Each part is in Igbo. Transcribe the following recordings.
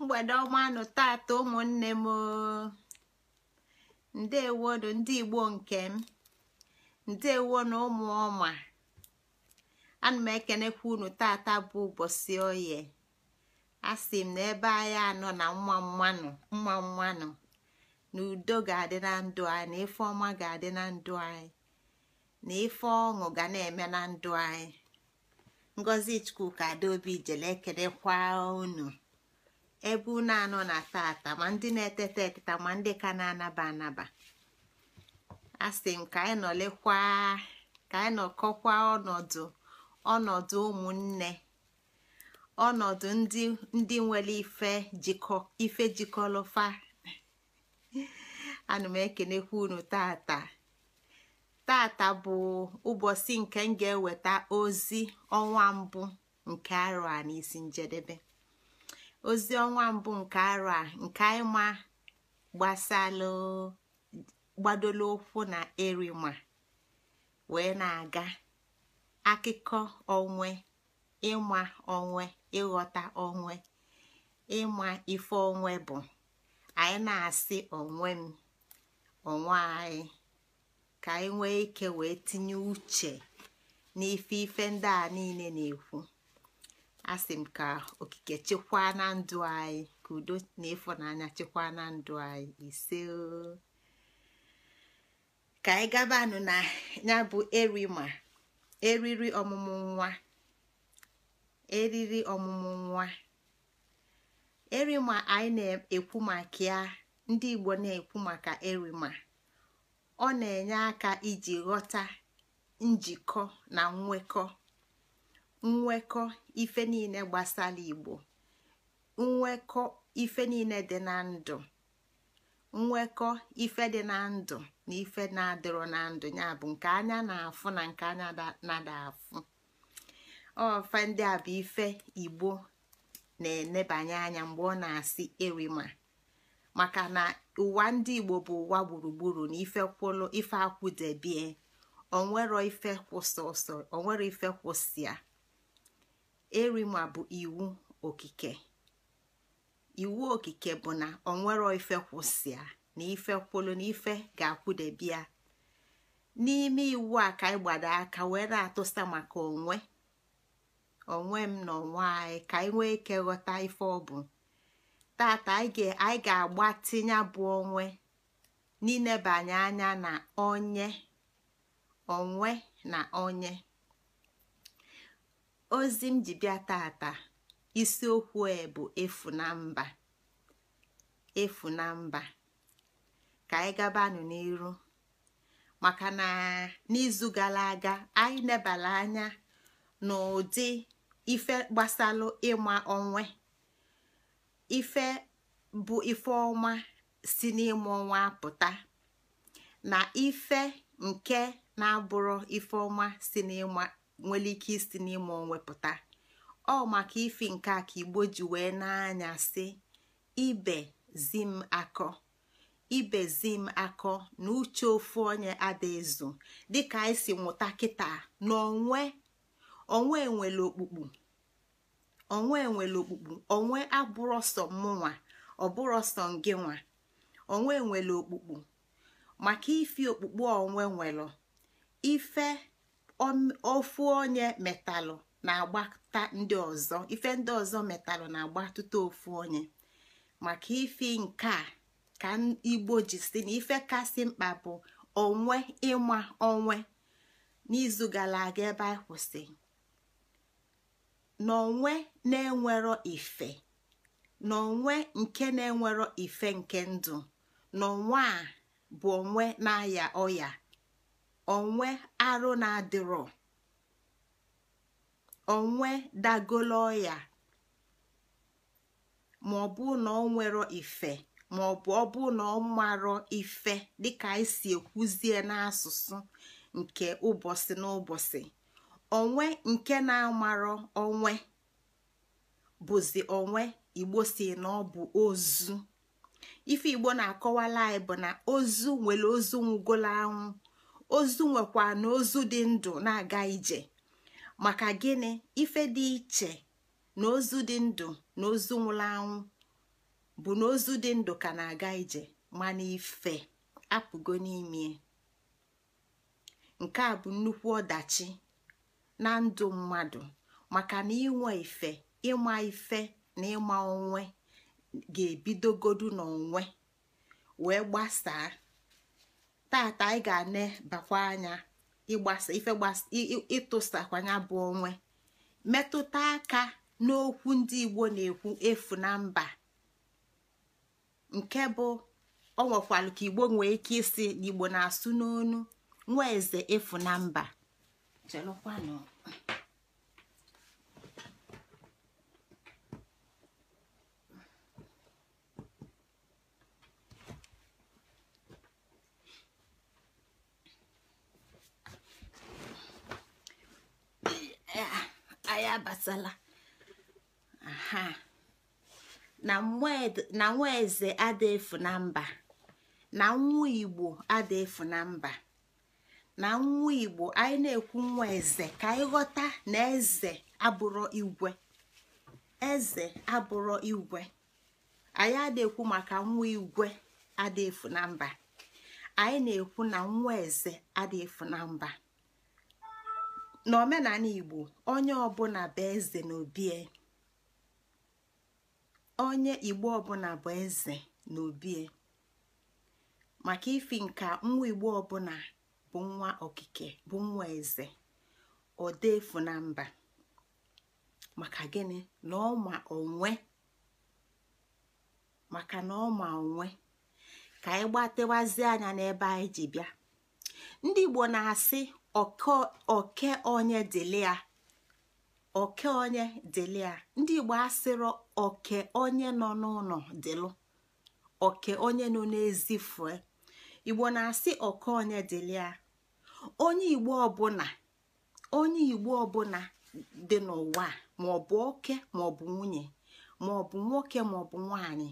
mgbede ọmanụ tata ụmụnne m ndewonu ndị igbo nke m na ụmụ ọma ana m ekenekwa unu tata bụ ụbọchị oye asị m na ebe anyị anọ na mma mmanụ mma mmanụ na udo ga-adị na ndụ anyị na ife ọma ga-adị na ndụ anyị na ife ọṅụ ga na-eme na ndụ anyị ngozi chukwu ka adaobi jele kwa unu ebe unu anọ na tata ma ndị na-eteta eteta ma ndị ka na-anaba anaba asị m ka anyị nọlekwa ka anyị nọkọkwa ọnọdụ ọnọdụ ụmụnne ọnọdụ ndị nwere ife ife jikọlọfa ana m ekenekwa unu tata tata bụ ụbọchị nke m ga-eweta ozi ọnwa mbụ nke arụ a n'isi njedebe ozi ọnwa mbụ nke arụ a nke anyị ma gbasala gbadolo ụkwụ na erima wee na-aga akụkọ onwe ịma onwe ịghọta onwe ịma ife onwe bụ anyị na-asị onwe m onwe anyị ka anyị nwee ike wee tinye uche n'ife ife ndị a niile na-ekwu asị m ka okike chekwaa na ndụ anyị ka udo na ịfụnanya chekwaa na ndụ anyị ise ka anyị gabanụ na ya bụ erima eriri ọmụmụ nwa eriri ọmụmụ nwa erima anyị na-ekwu maka ya ndị Igbo na-ekwu maka erima ọ na-enye aka iji ghọta njikọ na nwekọ nwekọ ife niile gbasara igbo nwekọ ife niile dị na ndụ nwekọ ife dị na ndụ na ife na-adịrọ na ndụ ya bụ nke anya na-afụ na nke anya nada afụ ofe ndị a bụ ife igbo na-enebanye anya mgbe ọ na-asị erima maka na ụwa ndị igbo bụ ụwa gburugburu na ife kwụlụ ife akwụdebie onwero ife kwụsị ọsọ onwero ife kwụsị ya erima bụ iwu okike iwu okike bụ na nwere ife kwụsịa na ife kwụlụ na ife ga-akwụdebia n'ime iwu a ka anyị gbado aka wee na-atụsa maka onwe onwe m na onwe anyị ka anyị nwee ike ghọta ife ọ bụ tata anyị ga-agba tinye bụ onwe n'inebanye anya na onye onwe na onye ozi m ji bịa tata isiokwu e bụ efu na mba efu na mba ka anyị gabanụ n'iru maka na n'izu gara aga anyị nebara anya n'ụdị ife gbasalụ ịma onwe ife bụ ife ọnwa si n'ịma ọnwa apụta na ife nke na-abụrụ ife ọma si n'ịma nwere ike isi n'ime onwepụta ọ maka ife nke a ka igbo ji wee n'anya si ibe zim akọ ibe zim akọ na uche ofu onye adaezu dịka anyị si nwụta kịta n'onwe onwe onwe okpukpu onwe nwere okpukpu onwe abụrọsọ mụnwa ọbụrụ nwa onwe nwere okpukpu maka ife okpukpu onwe nwere ife ofu onye metalụ na-agbata ndị ọzọ ife ndị ọzọ metalụ na-agbatụta ofu onye maka ifi nke a ka igbo ji si na ife kasị mkpa bụ onwe ịma onwe n'izu gara aga ebe anyị kwụsị n'onwe na-enwero ife n'onwe nke na-enwero ife nke ndụ n'onwe a bụ onwe na-aya ọya onwe arụ na-adịrọ onwe dagolo ya ma ọ bụ na ọ nwere ife ma ọ bụ ọ bụ na ọ marọ ife dịka anyị si ekwuzie n'asụsụ nke ụbọchị n'ụbọchị onwe nke na-amarọ onwe bụzi onwe igbo si na ọ bụ ozu ife igbo na-akọwala anyị bụ na ozu nwere ozu nwụgolo anwụ ozu nwekwa na ozu dị ndụ na-aga ije maka gịnị ife dị iche na ozu dị ndụ na ozu nwụrụ anwụ bụ na ozu dị ndụ ka na-aga ije mana ife apụgo n'ime nke a bụ nnukwu ọdachi na ndụ mmadụ maka na inwe ife ịma ife na ịma onwe ga-ebidogodu n'onwe wee gbasaa taata anyị ga-ane bakwa anya ịgbasa ife ịtụsakwanya bụ onwe metụta aka n'okwu ndị igbo na-ekwu efu na mba nke bụ ọ nwekwalụ ka igbo nwee ike isi na igbo na-asụ n'onu nwa eze efu na mba ya abatala aha na nwa eze ada efu na mba na nwa igbo ada efu na mba na nwa igbo anyị na-ekwu nwa eze ka anyị ghọta na eze abụrụ igwe eze abụrụ igwe anyị adịekwu maka nwa igwe adịefu na mba anyị na-ekwu na nwa eze adịefu na mba na omenala igbo onye ọbụla bụ eze n'obie onye igbo ọbụla bụ eze n'obie maka ifi nka nwa igbo ọbụla bụ nwa okike bụ nwa eze efu na mba maka gịnị na ọma onwe maka na onwe ka anyị gbatewazie anya n'ebe anyị ji bịa ndị igbo na-asị oke onye dịlịa oke onye dịlịa ndị igbo asịrọ oke onye nọ n'ụlọ dịlụ oke onye nọ n'ezi fue igbo na-asị oke onye dilia onye igbo ọbụla onye igbo ọbụla dị n'ụwa maọbụ oke maọbụ nwunye maọbụ nwoke maọbụ nwanyị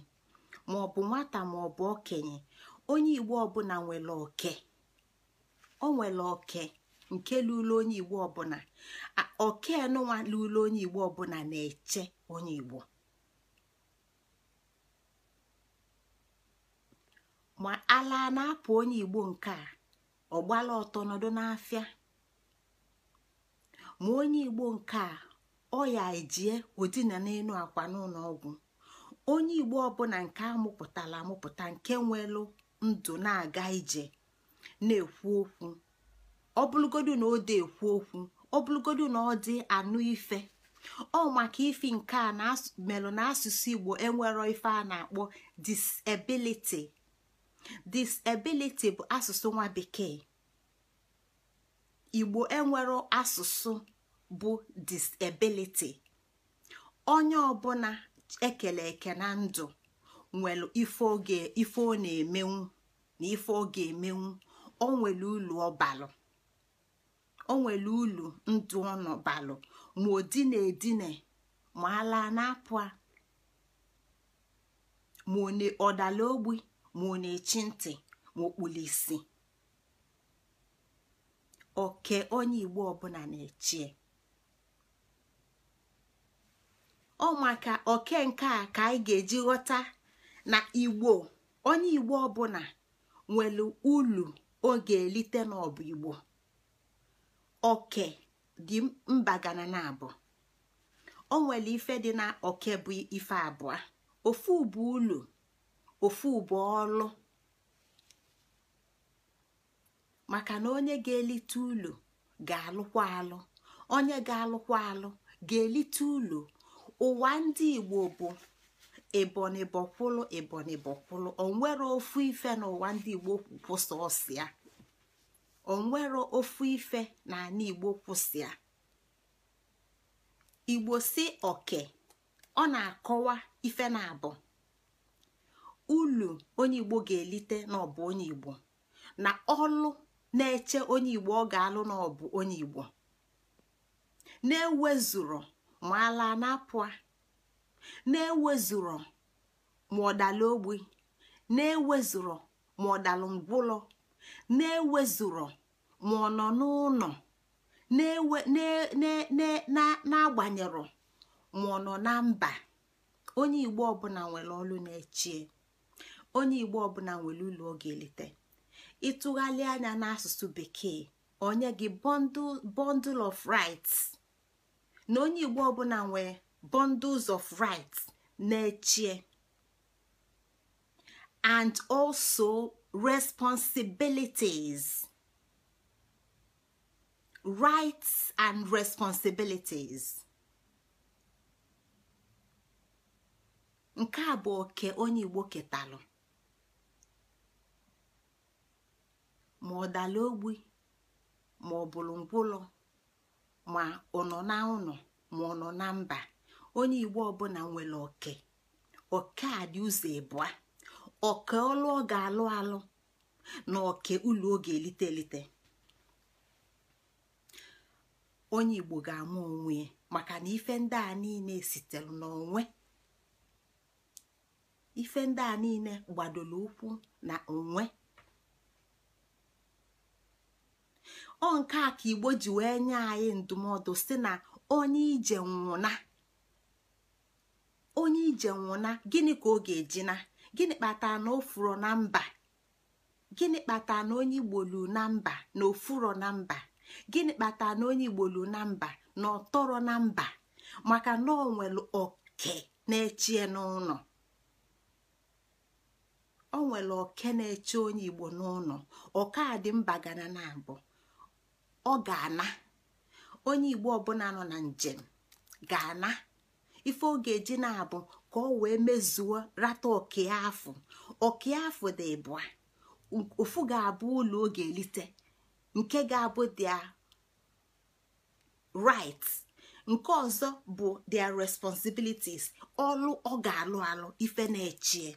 maọbụ nwata maọbụ okenye onye igbo ọbụla nwere oke o nwere oke nke lụlụ onye igbo ọbụla okenụnwa lụlụ onye igbo ọbụla na-eche onye igbo ma ala na-apụ onye igbo nke a ọ gbala ọtọ nọdụ n'afịa ma onye igbo nke a ọ ya ejie odina n'elu akwa n'ụlọ ọgwụ onye igbo ọbụla nke amụpụtala amụpụta nke nwelu ndụ na-aga ije na-ekwu okwu ọ na o de ekwu okwu ọ na ọ dị anụ ife ọ maka ifi nke a melụ na asụsụ igbo enwero ife a na-akpọ disability disability bụ asụsụ nwa bekee igbo enwero asụsụ bụ disability onye ọbụla ekele eke na ndụ nwere ife ọ na-emenwu na ife ọ ga-emenwu o nwere ulu ọbalụ o nwere ulu ndu ọnụ balụ ma odine edine ma ala na-apụ ma ọ dala ogbi ma ọ na-echi ntị ma isi oke onye igbo ọbụla na-echie ọ maka oke nke a ka anyị ga-eji ghọta na igbo onye igbo ọbụla nwere ulu ọ ga-elite n'ọbụ igbo oke dị mba gana na abụọ o nwere ife dị na oke bụ ife abụọ ofu bụ ụlọ ofu bụ ọlụ maka na onye ga-elite ụlọ ga-alụkwa alụ onye ga-alụkwa alụ ga-elite ụlọ ụwa ndị igbo bụ ebonyi bọkwụlụ ebonyi bọkwụlụ onwere ofu ife n'ụwa ndị igbo kwụsọ ọsịa onwero ofu ife na na igbo kwụsịa igbo si oke ọ na-akọwa ife na-abụ ulu onye igbo ga-elite n'ọbụ onye igbo na ọlụ na-eche onye igbo ọ ga-alụ n'ọbụ onye igbo na-ewezuro ma ala na na-ewezuro ma ọdala ogbi na-ewezuro ma ọdalụ ngwụlọ na-ewezụrọ ma ọ nọ n'ụlọ na-agbanyerọ ma ọ nọ na mba onye igbo ọbụla nwere ọlụ na-echie onye igbo ọbụla nwere ụlọ ọ ga-eleta ịtụgharị anya n'asụsụ bekee onye gị bundle of rights na onye igbo ọbụla nwere bundles of rights na-echie and also responsibilities rights and responsibilities nke a bụ oke onye igbo ketalụ ma ọ dala ogbi ma ọ bụrụ ngwụlọ ma ọ nọ na ụlọ ma ọ nọ na mba onye igbo ọbụla nwere oke oke a dị ụzọ ịbụa ọka ọlụ ọ ga-alụ alụ na oke ụlọ oge elite onye igbo ga amụ onwe maka na ife ndị a niile sitere n'onwe ife ndị a niile gbadoro ụkwụ na onwe ọ nke a ka igbo ji wee nye anyị ndụmọdụ si na onye ije nwụna onye ije nwụna gịnị ka ọ ga-eji na. gịnị kpatara na ofuro na mba gịnị kpatara na onye igbolu na mba na ofuro na mba gịnị kpatara na onye igbolu na mba na ọtọrọ na mba maka na ọ nwere oke na-echie n'ụlọ ọ nwere oke na-eche onye igbo n'ụlọ ọka dị mba gana na abụ ọ ga-ana onye igbo ọbụla nọ na njem ga-ana ife ọ ga na-abụ ka ọ wee mezuo rata ọkịa afọ ọkịa afọ dị ịbụa ofu ga-abụ ụlọ oge elite nke ga-abụ dia right nke ọzọ bụ their responsibilities ọlụ ọ ga-alụ alụ ife na-echie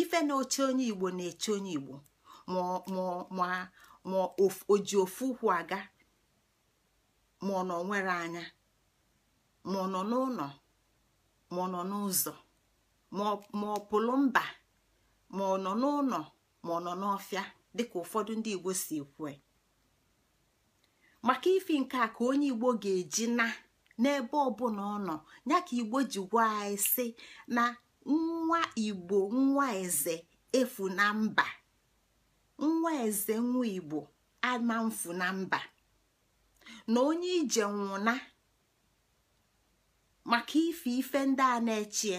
ife na-oche onye igbo na-eche onye igbo ma oji ofu ụkwụ aga ma ọ nọ nwere anya ma ọ nọ n'ụlọ ma ọ nọ n'ụzọ ma ọ pụlụ mba ma ọ nọ n'ụlọ ma ọ nọ n'ọfịa dịka ụfọdụ ndị igbo si kwue maka ifi nke a ka onye igbo ga-eji na n'ebe ọbụla ọ nọ ya ka igbo ji gwa anyị na nwa igbo nwa eze efu na mba nwa eze nwa igbo ama mfu na mba na onye ije nwụna maka ife ife ndị a na-echie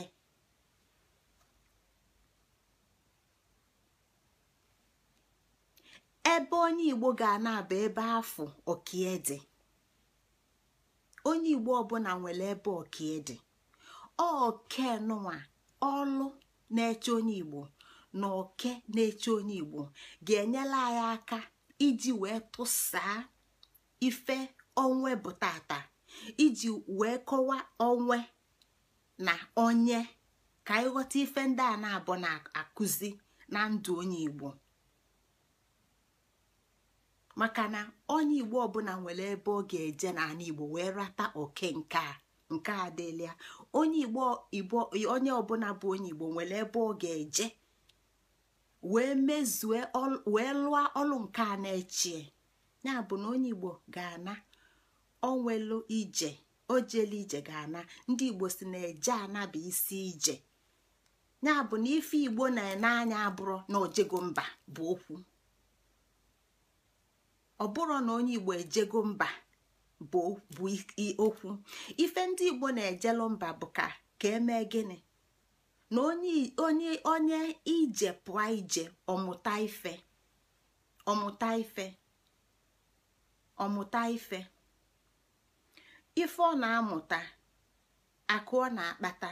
ebe onye igbo ga-ana abụ ebe afọ okie onye igbo ọbụla nwere ebe okie dị oke nwa ọlụ na-eche onye igbo na oke na-eche onye igbo ga-enyela anyị aka iji wee tụsaa ife onwe bụ tata iji wee kọwa onwe na onye ka ịghọta ife ndị a na-abụ na-akụzi na ndụ onye Igbo maka na onye Igbo ọbụla nwere ebe ọ ga-eje n'ala Igbo wee rata oke nke a nke a onye Igbo Igbo onye ọbụla bụ onye Igbo nwere ebe ọ ga-eje wee mezue wee lụọ ọrụ nke a na-echie ya bụ na onye Igbo ga-ana onwelu ije o ije ga-ana ndi igbo si na eje ana bụ isi ije ya bụ na ife igbo na anya abụrụ na ojego mba bụ okwu ọ na onye igbo ejego mba bụ okwu ife ndi igbo na-ejelu mba bụ ka ka emee gịnị na onye onye ije pụọ ije ọmụta ife ọmụta ife ọmụta ife ife ọ na-amụta akụ ọ na-akpata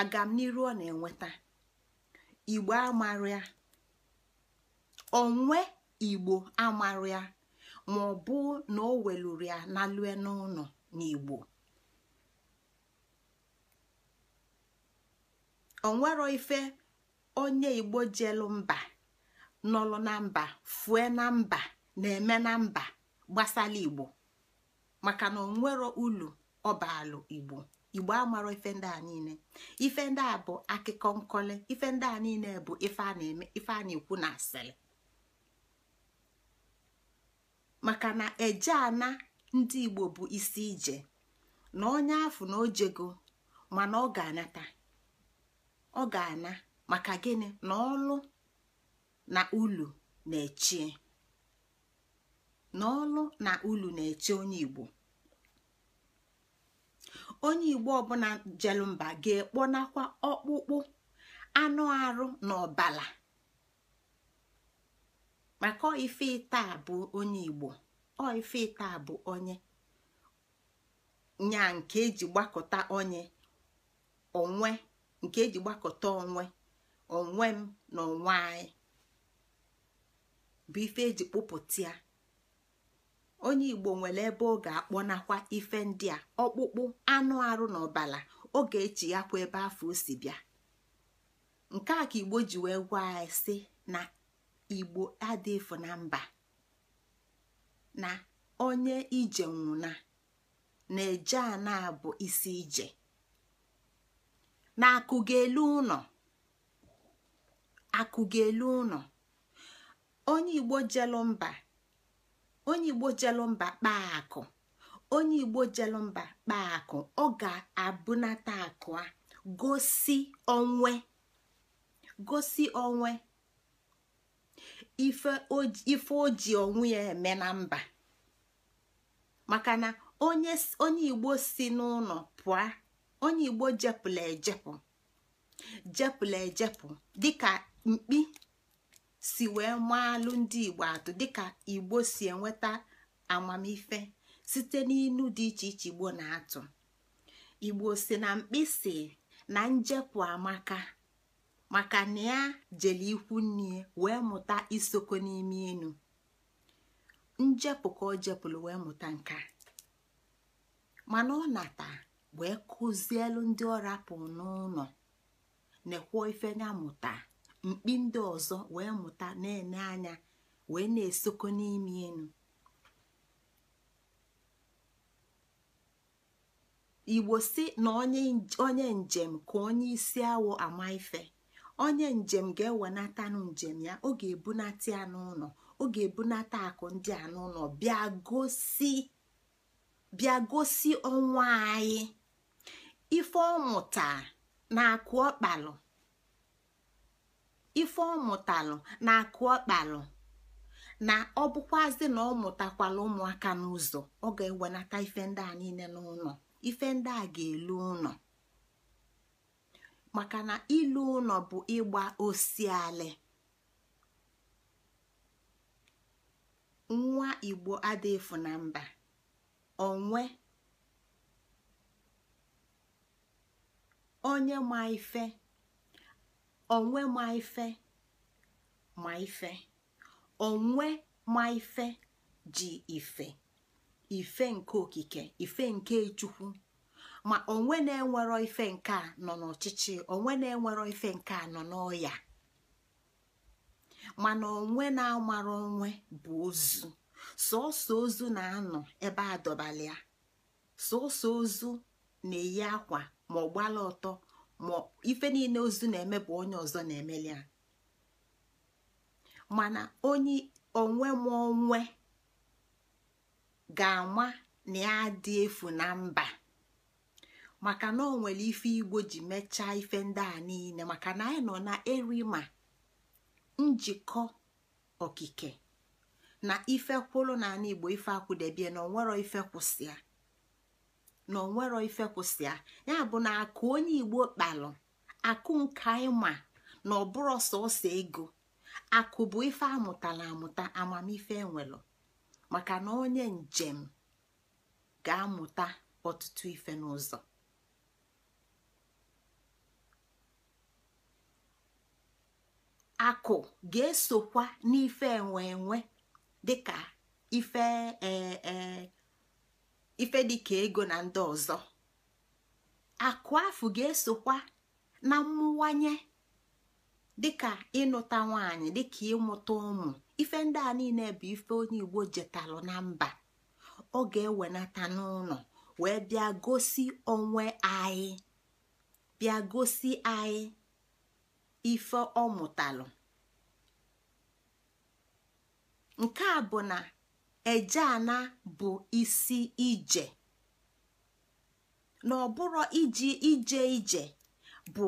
agamniru ọ na-enweta igbo amarịa onwe igbo amarịa ma ọ bụ na o weluru ya na lue n'ụlọ n'igbo onwero ife onye igbo jelu mba nọlụ na mba fue na mba na-eme na mba gbasala igbo maka na onwero ulu ọbalụ igbo igbo amara ife ndị a niile ife ndị a bụ akụkọ nkọle ife ndị a niile bụ ife a na-eme ife a na-ekwu na asịrị maka na eje ana ndị igbo bụ isi ije na onye afụ na ojego mana ọ ga-anata ọ ga-ana maka gịnị na ọlụ na ulu na-echie na ọlụ na ulu na-eche onye igbo onye igbo ọbụla jelumba ga-ekponakwa ọkpụkpụ anụ arụ na ọbala maka ife ita bụ onye igbo ọ ife ita bụ onye nya nke eji gbakọta onye onwe nke eji gbakọta onwe onwe m na onwe anyị bụ ife eji kpụpụta onye igbo nwere ebe ọ ga-akpọnakwa ife ndị a ọkpụkpụ anụ arụ na ọbala oge echi ya kwa ebe afọ o si bịa nke a ka igbo ji wee gwa anyị na igbo adịfụ na mba na onye ije nwụna na-eje ana bụ isi ije na akụgelu ụnọ akụgelu ụnọ onye igbo jelu mba onye igbo jelụ mba kpaa akụ onye igbo jelụ mba kpaa ọ ga-abụnata akụ a gosi onwe gosi onwe ife o ji onwe ya eme na mba maka na onye igbo si n'ụlọ pụa onye igbo jepụla ejepụ jepụla ejepụ dịka mkpi si wee alụ ndị igbo atụ dịka igbo si enweta amamife site n'inu dị iche iche igbo na-atụ igbo si na mkpịsị na njepụ amaka maka na ya jele ikwu nni wee mụta isoko n'ime inu njepụ ka o jepụla wee mụta nka mana ọ nata wee kụzielu ndị ọ rapụ n'ụlọ ekwuo ife ya mụta mkpi ndị ọzọ wee mụta na eme anya wee na-esoko n'ime enu igbo si na onye njem ka onye isi awọ ama ife onye njem ga-ewenatanụ njem ya ọ ga-ebunata ya n'ụlọ ọ ga-ebunata akụ ndị a n'ụlọ bịa gosi ọnwa anyị ife ọmụta na akụ ọkpalụ ife ọ mụtalụ na akụ ọkpalụ na ọ na ọ mụtakwala ụmụaka n'ụzọ ọ ga-ewenata ife ndị a niile n'ụlọ ife ndị a ga-elu ụlọ maka na ilu ụlọ bụ ịgba osialị nwa igbo adịfu na mba onwe onye ma ife onwe ma ife ma ife onwe ma ife ji ife ife nke okike ife nke chukwu ma onwe na-enwero ife nke a nọ n'ọchịchị onwe na-enwero ife nke a nọ n'ọya mana onwe na-amara onwe bụ ozu sọọsọ ozu na-anọ ebe a dọbalịa sọọsọ ozu na-eyi akwa ma ọ gbala ọtọ ma ife niile ozu na-eme bụ onye ọzọ na-emeli ya mana onye onwe m ga-ama na ya dị efu na mba maka na ọ nwere ife igbo ji mechaa ife ndị a niile maka na anyị nọ na erima njikọ okike na ife kwụrụ n'ala igbo ife akwụdebie na onwero ife kwụsịa na onwero ife kwụsịa ya bụ na akụ onye igbo kpalụ akụ nka ịma na ọbụrụ sọsọ ego akụ bụ ife amụtala amụta amamife enwelụ maka na onye njem ga-amụta ọtụtụ ife n'ụzọ akụ ga-esokwa n'ife enwe enwe dịka ife ee eh, eh, ife dịka ego na ndị ọzọ akụ afụ ga-esokwa na mmụwanye dịka ịnụta nwanyị dịka ịmụta ụmụ ife ndị a niile bụ ife onye igbo jetalụ na mba ọ ga-ewenata n'ụlọ wee bịa gosi onwe anyị bịa gosi anyị ife ọ mụtalụ nke a bụ na ejeana bụ isi ije na ọbụrụ iji ije ije bụ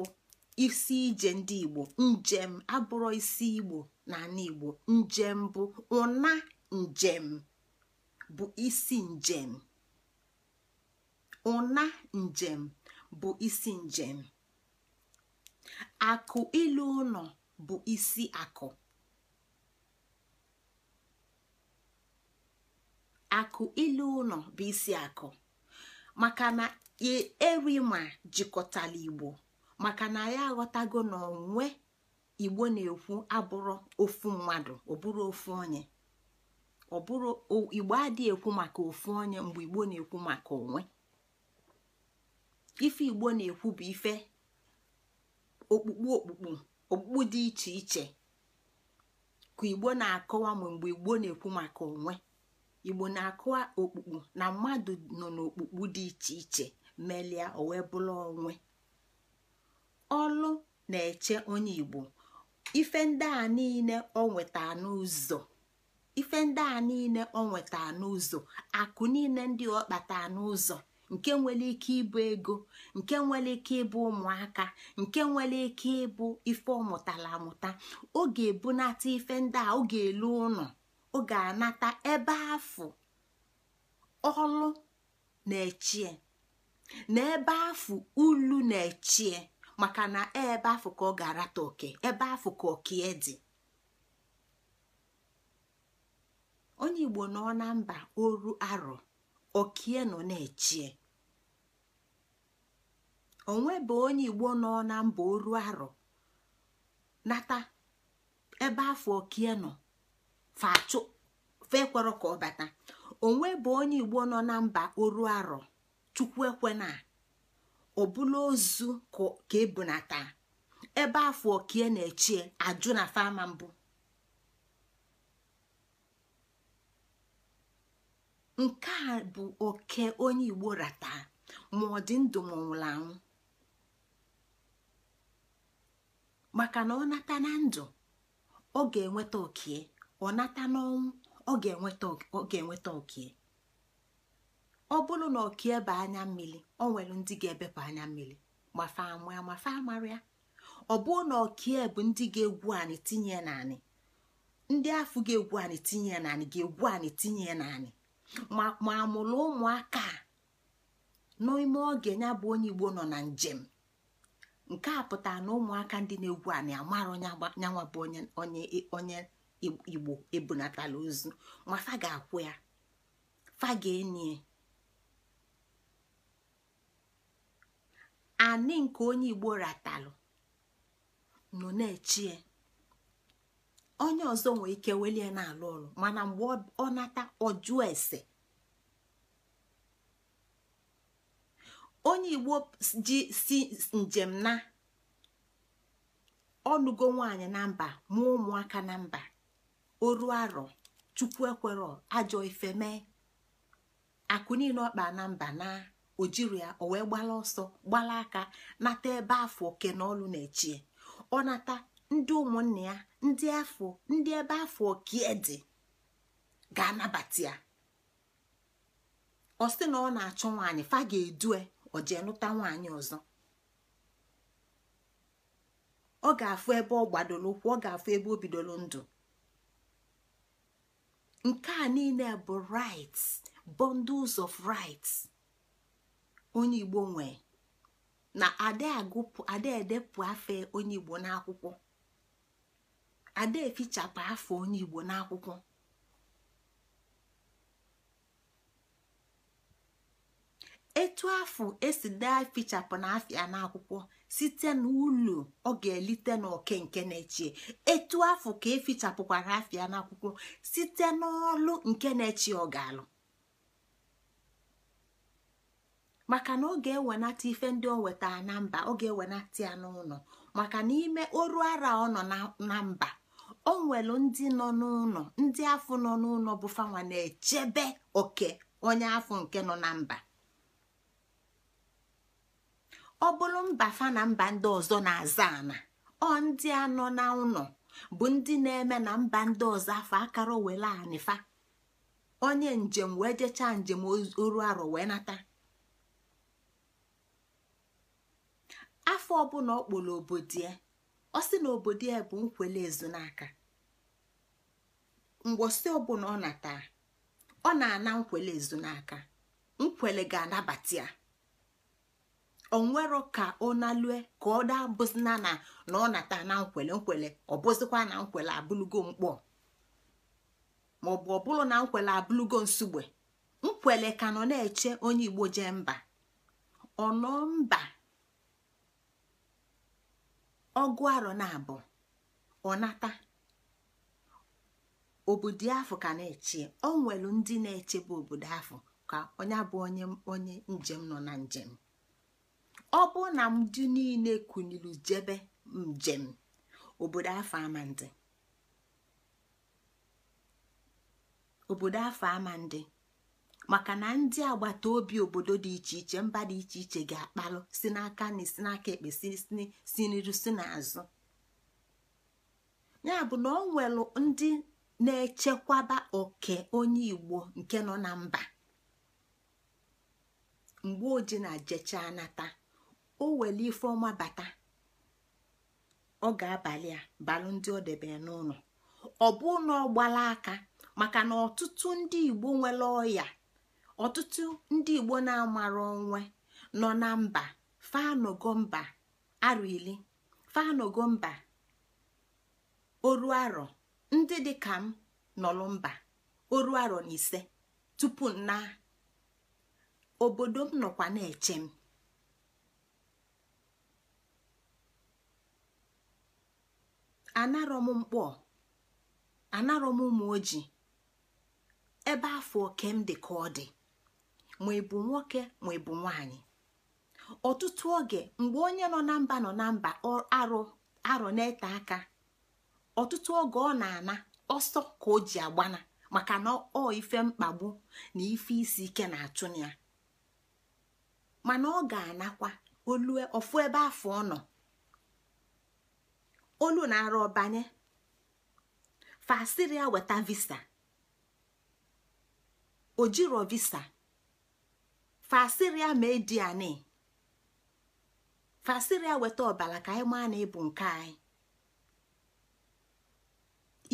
isi ije ndị igbo njem abụrụ isi igbo na ala igbo njem bụ ụna njem bụ isi njem ụna njem bụ isi njem akụ ilu ụlọ bụ isi akụ akụ ile ụlọ bụ isi akụ maka na e, erima jikọtala igbo maka na ya aghọtago na onwe igbo na-ekwu abụrụ ofu mmadụ ọbụrụ ofu onye ọbụrụ igbo adịghị ekwu maka ofu onye mgbe igbo na-ekwu maka onwe ife igbo na-ekwu bụ ife okpukpu okpukpu okpukpu dị iche iche ka igbo na-akọwa mgbe igbo na-ekwu maka onwe igbo na-akụ okpukpu na mmadụ nọ n'okpukpu dị iche iche melia owe wee bụrụ onwe ọlụ na-eche onye igbo ife ndị a niile o nweta n'ụzọ ife ndị a niile o nweta n'ụzọ akụ niile ndị ọ kpata n'ụzọ nke nwere ike ịbụ ego nke nwere ike ịbụ ụmụaka nke nwere ike ịbụ ife ọ mụtara amụta ọ ga-ebunata ife ndị a ọ ga-elu ụlọ ọ ga-anata ebe afụ ọlụ na-echie na ebe afụ ulu na-echie maka na ebe afụ ka ọ ga-arata oke ebe afụ ka okie dị onye igbo nọ na mba oru arọ okie nọ na-echie onwebe onye igbo nọ na mba oru arọ nata ebe afọ okie nọ fachụ fekwerọ ka ọ bata onwe bụ onye igbo nọ na mba oru arọ chukwu ekwena ọbụla ozu ka ebunata ebe afọ okie na-echie ajụ na fama mbụ nke a bụ oke onye igbo rata ma ọ dị ndụ ma nwụrụ anwụ maka na ọ nata na ndụ ọ ga-enweta okie ọ nata n'ọnwụ ọ ga-enweta ọkie ọ bụrụ na ọkie bụ anya mmiri ọ nwere ndị ga-ebepụ anya mmiri mafa amụ ya mafa ọ bụrụ na ọkie bụ ndị ga-egwu anyị tinye naanị ndị afọ ga-egwu anyị tinye naanị ga-egwu anyị tinye naanị ma amụrụ ụmụaka n'ime oge ya bụ onye Igbo nọ na njem nke a pụtara na ụmụaka ndị na-egwu anyị amarọ nwa bụ onye onye igbo ebunatala ozu ma fa ga-akwụ ya fa ga-enye anị nke onye igbo ratalụ nọ na-echie onye ọzọ nwee ike welie na-alụ ọrụ mana mgbe ọ nata ọjụọ ese onye igbo ji si njem na ọnụgo nwaanyị na mba mụọ ụmụaka na mba oru arọ chukwu ekwero ajọ ife mee akụ niile ọkpa na mba na ojiri ya o wee gbala ọsọ gbala aka nata ebe afọ oke na ọlụ na-echie ọ nata ndị ụmụnne ya ndị afọ ndị ebe afọ oke e dị ga-anabata ya ọ sị na ọ na-achọ nwaanyị fa ga-edue o nụta nwaanyị ọzọ ọ ga-afụ ebe ọ gbadoro ụkwụ ọ ga-afụ ebe o bidoro ndụ nke a niile bụ rights bundles of rights onye igbo nwee na ada edepụ afọ onye igbo n'akwụkwọ ada fichapụ afọ onye igbo n'akwụkwọ etu afọ esi dee fichapụ na afịa n'akwụkwọ site n'ụlọ ọ ga-elite n'oke nke na-echie etu afọ ka efichapụkwara afịa n'akwụkwọ site n'ọlụ nke na-echi ọ ga-alụ maka na ọ ga-ewenata ife ndị o wetara na mba ọ ga-ewenata ya n'ụlọ maka na ime oru ara ọ nọ na mba o nwelu ndị nọ n'ụlọ ndị afọ nọ n'ụlọ bụ fanwa na-echebe oke onye afọ nke nọ na mba ọ bụrụ mba fa na mba ndị ọzọ na-aza ana ọ ndị anọ na ụnọ bụ ndị na-eme na mba ndị ọzọ afọ akara were anịfa onye njem wee jechaa njem oru arọ wee nata afọ ọbụla ọ kpọrọ obodo ya ọ sị na obodo ya bụ nkwele ezu n'aka ngwosi ọbụla ọ nata ọ na-ana nkwele ezu nkwele ga-anabata ya onwero ka ọ nalue ka ọ daa bụzina na na ọ nata na nkwele nkwele ọ bụzikwa na nkwele abụlugo mkpọ maọbụ ọ bụrụ na nkwele abụlugo nsugbe nkwele ka nọ na-eche onye igbo jee mba ọ mba ọgụ arọ na abụ ọ nata obodo afọ ka na-eche ọ nwere ndị na-echebe obodo afọ ka onye bụ onye onye njem nọ na njem ọ bụ na ndị niile kụnyiri jebe njem obodo afọ ama maka na ndị agbata obi obodo dị iche iche mba dị iche iche ga-akpalụ si n'aka na si n'aka ekpe si n'iru si n'azụ ya bụ na ọ nwere ndị na-echekwaba oke onye igbo nke nọ na mba mgbe oji na jechaa nata o wele ife ọma bata ọ ga-abalị a balụ ndị ọ debe n'ụlọ ọ bụ na ọ gbala aka maka na ọtụtụ ndị igbo nwere ọya ọtụtụ ndị igbo na-amara onwe nọ na mba faanogo mba arọ ili faanogo mba oru arọ ndị dị ka m nọlụ mba oru arọ na ise tupu na obodo m nọkwa na-eche m anarọ m mkpọ anarọ m ụmụ ojii ebe afọ oke m dị ka ọ dị ma ị bụ nwoke ma ị bụ nwanyị ọtụtụ oge mgbe onye nọ na mba nọ na mba arọ na-ete aka ọtụtụ oge ọ na-ana ọsọ ka o ji agbana maka na ọ ife mkpagbu na ife isi ike na-achụ ya mana ọ ga-anakwa olue ofu ebe afọ ọ nọ olu na-arụ ọbanye fasịrị ya weta visa ojiro visa fasịrị ya ma anị fasịrị ya weta ọbara ka anyị maa na ịbụ nke anyị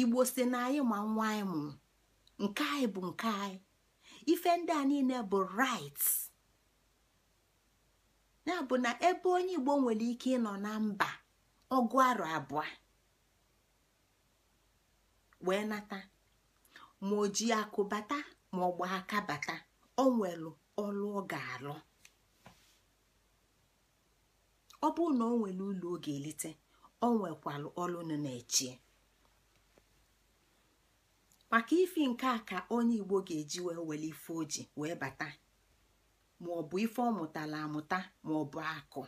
igbo si na anyị ma nwa anyị mụrụ nke anyị bụ nke anyị ife ndị a niile bụ right ya bụ na ebe onye igbo nwere ike ịnọ na mba ọgụ arọ abụọ wee nata ma o ji akụ bata ma ọ gba aka bata o nwelu ọlụ ọ ga-alụ ọ bụrụ na o nwere ụlọ ọ ga-elite o nwekwalụ ọlụ nọ na-echie maka ife nke a ka onye igbo ga-eji wee were ife oji wee bata ma ọ bụ ife ọ mụtara amụta ma akụ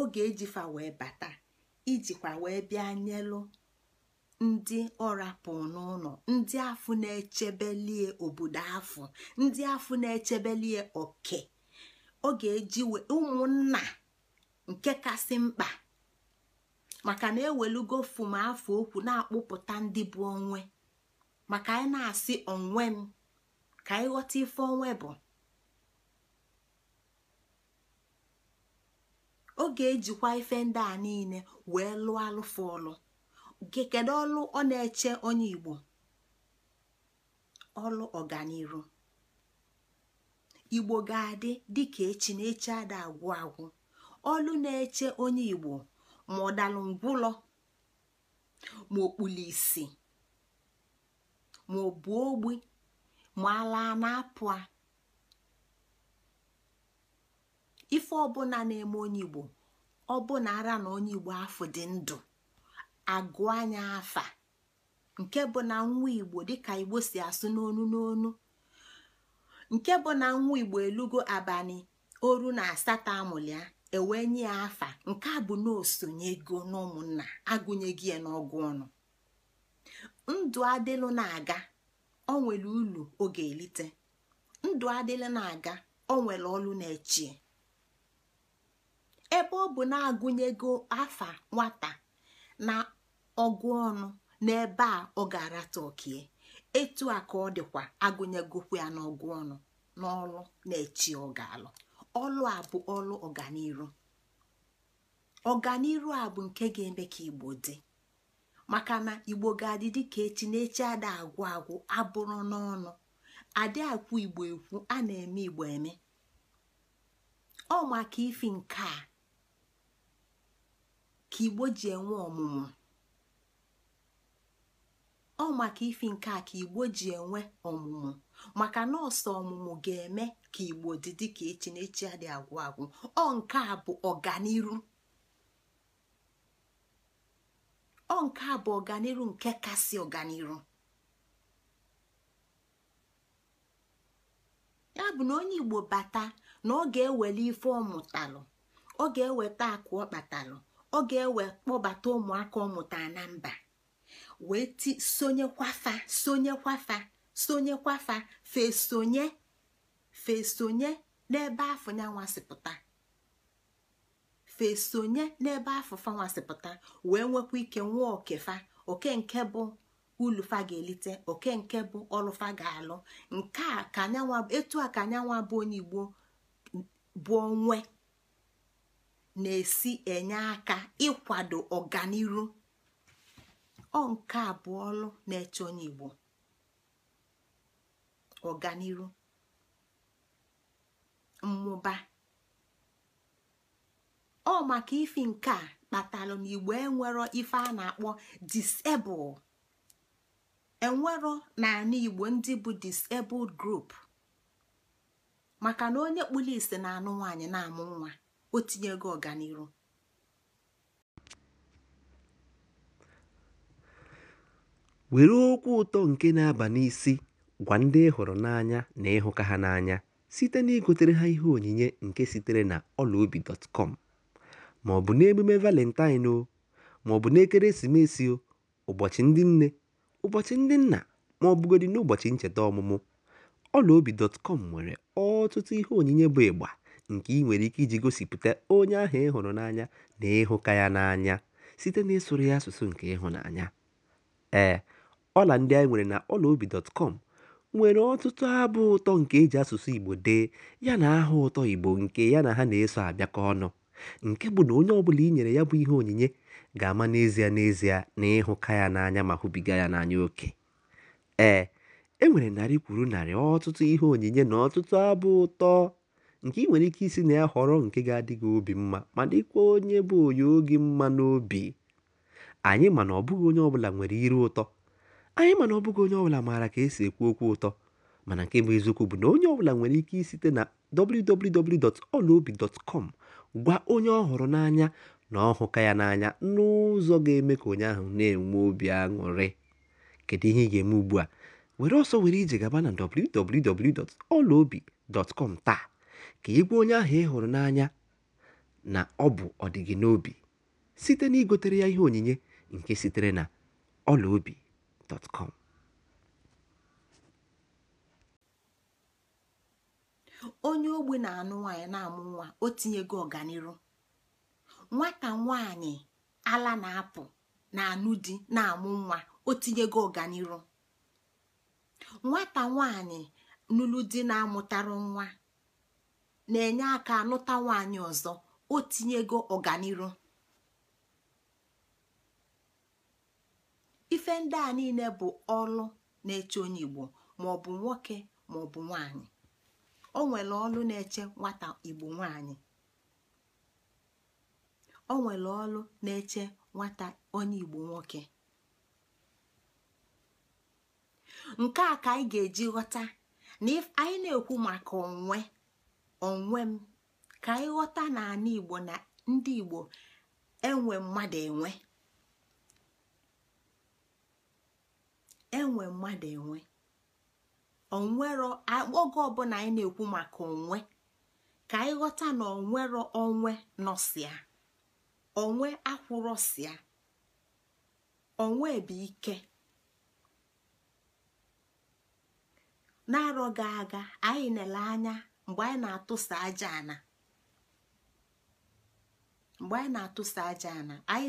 oge ejifa wee bata ijikwa wee bịa nyelụ ndị ọrapụ n'ụlọ ndị afụ na-echebelie obodo afụ ndị afụ na-echebelie oke ọ ga-eji ụmụnna nke kasị mkpa maka na ewelugo fum afọ okwu na-akpụpụta ndị bụ onwe maka anyị na-asị onwe m ka ịghọta ife onwe bụ ọ ga-ejikwa ife ndị a niile wee lụọ alụfụ ọlụ kedu ọlụ ọ na-eche onye igbo ọlụ ọganiru igbo ga-adị dịka echi na eche ada agwụ agwụ ọlụ na-eche onye igbo ma ọ dalụ ngwụlọ ma isi ma ọ bụ ogbi ma ala na-apụ a ife ọbụla na-eme onye igbo ọbụna ara na onye igbo afọ dị ndụ agụ anya afa nke bụ na nwa igbo dịka igbo si asụ n'onu n'onu nke bụ na nwa igbo elugo abalị oru na asatọ amụlịa ewee nye ya afa nke a bụ ego n'ụmụnna agụnyeghị ya n'ọgụ ọnụ ndụ adịlụ na-aga ọ nwere ulu oge elite ndụ adịlụ na-aga ọ nwere na-echie ebe ọ bụ na-agụnyego afa nwata na ọgụ ọnụ n'ebe a ọ ga-arata etu a ka ọ dịkwa agụnyegokwu ya n'ọgụ ọnụ n'ọlụ na-echi ọ alụ ọlụ a bụ ọlụ ọganiru ọganiru a bụ nke ga-eme ka igbo dị maka na igbo ga-adị dịka echi na-echi ada agwụ agwụ abụrụ n'ọnụ adị akwụ igbo ekwu a na-eme igbo eme ọ maka ifi nke a ka igbo ji enwe ọmụmụ ọ maka ifi nke a ka igbo ji enwe ọmụmụ maka nọọsụ ọmụmụ ga-eme ka igbo dị dịka echi na echi adị agwụ agwụ ọ nke a bụ ọganiru ọ nke a bụ ọganiru nke kasị ọganiru ya bụ na onye igbo bata na ọ ga ewele ife ọmụtalụ ọ ga-eweta akụ ọ ọ ga-ewe kpọbata ụmụaka ọmụta na mba wee ti sonyekwafa sonyekwafa sonyekwafa fesonye fesonye n'ebe afọ ya nwasịpụta fesonye n'ebe afọ fa nwasịpụta wee nwekwa ike nwee okefa oke nke bụ ulufa ga-elite oke nke bụ ọlụfa ga-alụ nke a ka etu a ka anyanwa bụ onye igbo bụ onwe na-esi enye aka ịkwado ọganiru ọ nke abụọ na-eche Igbo ọganiru mmụba ọ maka ifi nke a kpatalụ na Igbo enwero ife a na-akpọ disable enwero naanị Igbo ndị bụ disebel grup maka na onye kpụrụ ise na anụ nwaanyị na-amụ nwa o gị ọganiru were okwu ụtọ nke na-aba n'isi gwa ndị ịhụrụ n'anya na ịhụka ha n'anya site na igotere ha ihe onyinye nke sitere na ọlaobi.com ma ọ bụ n'emume valentine o ma ọ bụ n'ekeresimesi o ụbọchị ndị nne ụbọchị ndị nna ma ọ bụgodị n'ụbọchị ncheta ọmụmụ ọlaobi.com nwere ọtụtụ ihe onyinye bụ ịgba nke ị nwere ike iji gosipụta onye ahụ ị hụrụ n'anya na ịhụka ya n'anya site n'ịsụrụ ya asụsụ nke ịhụnanya. Ee, ọla ndị anyị nwere na ọlaobi.com nwere ọtụtụ abụ ụtọ nke e ji asụsụ Igbo dee ya na aha ụtọ Igbo nke ya na ha na-eso abịakọ ọnụ, nke bụ na onye ọbụla i nyere ya bụ ihe onyinye ga-ama n'ezie n'ezie na ịhụka ya n'anya ma hụbiga ya n'anya oke. Ee, e nwere narị kwuru narị ọtụtụ ihe onyinye na ọtụtụ abụ ụtọ. nke ị nwere ike isi na ya họrọ nke ga-adị gị obi mma ma dịkwa onye bụ onye oge mma n'obi anyị ma na ọbụghị onye ọbụla nwere iru ụtọ anyị ma na ọbụghị onye ọbụla maara ka esi ekwu okwu ụtọ mana nke bụ eziokwu bụ na onye ọbụla nwere ike isite na www.olaobi.com gwa onye ọ hụrụ n'anya na ọ hụka ya n'anya n'ụzọ ga-eme ka onye ahụ na-enwe obi aṅụrị kedu ihe ị ga-eme ugbu a were ọsọ were ije gaba na www.olaobi.com taa ka ị onye ahụ ị hụrụ n'anya na ọ bụ ọdịgị n'obi site na igotere ya ihe onyinye nke sitere na ọlaobi.com onye ogbe na-anụ nwaanyị na-amụ nwa o tinyego ọganiru nwata nwaanyị ala na-apụ na-anụ di na-amụ nwa o tinyego ọganiru nwata nwaanyị nụlụ di na-amụtarụ nwa na-enye aka anụta nwaanyị ọzọ o tinyego ọganiru ife ndị a niile bụ ọlụ na-eche onye igbo ma ọ bụ nwoke ma ọ bụ nwaanyị o nwere ọlụ na-eche nwata igbo nwaanyị onye igbo nwoke nke a ka anyị ga-eji ghọta na anyị na-ekwu maka onwe onwe m ka anyị ghọta n'ala igbo na ndị igbo enwe mmadụ enwe enwe mmadụ enwe onwero oge ọbụla anyị na-ekwu maka onwe ka anyị ghọta na onwero onwe nọsia onwe akwụrọsia onwe bụ ike na-arọ ga aga anyị nele anya mgbe anyị na-atụsa aja ana mgbe anyị na-atụsa aja ana anyị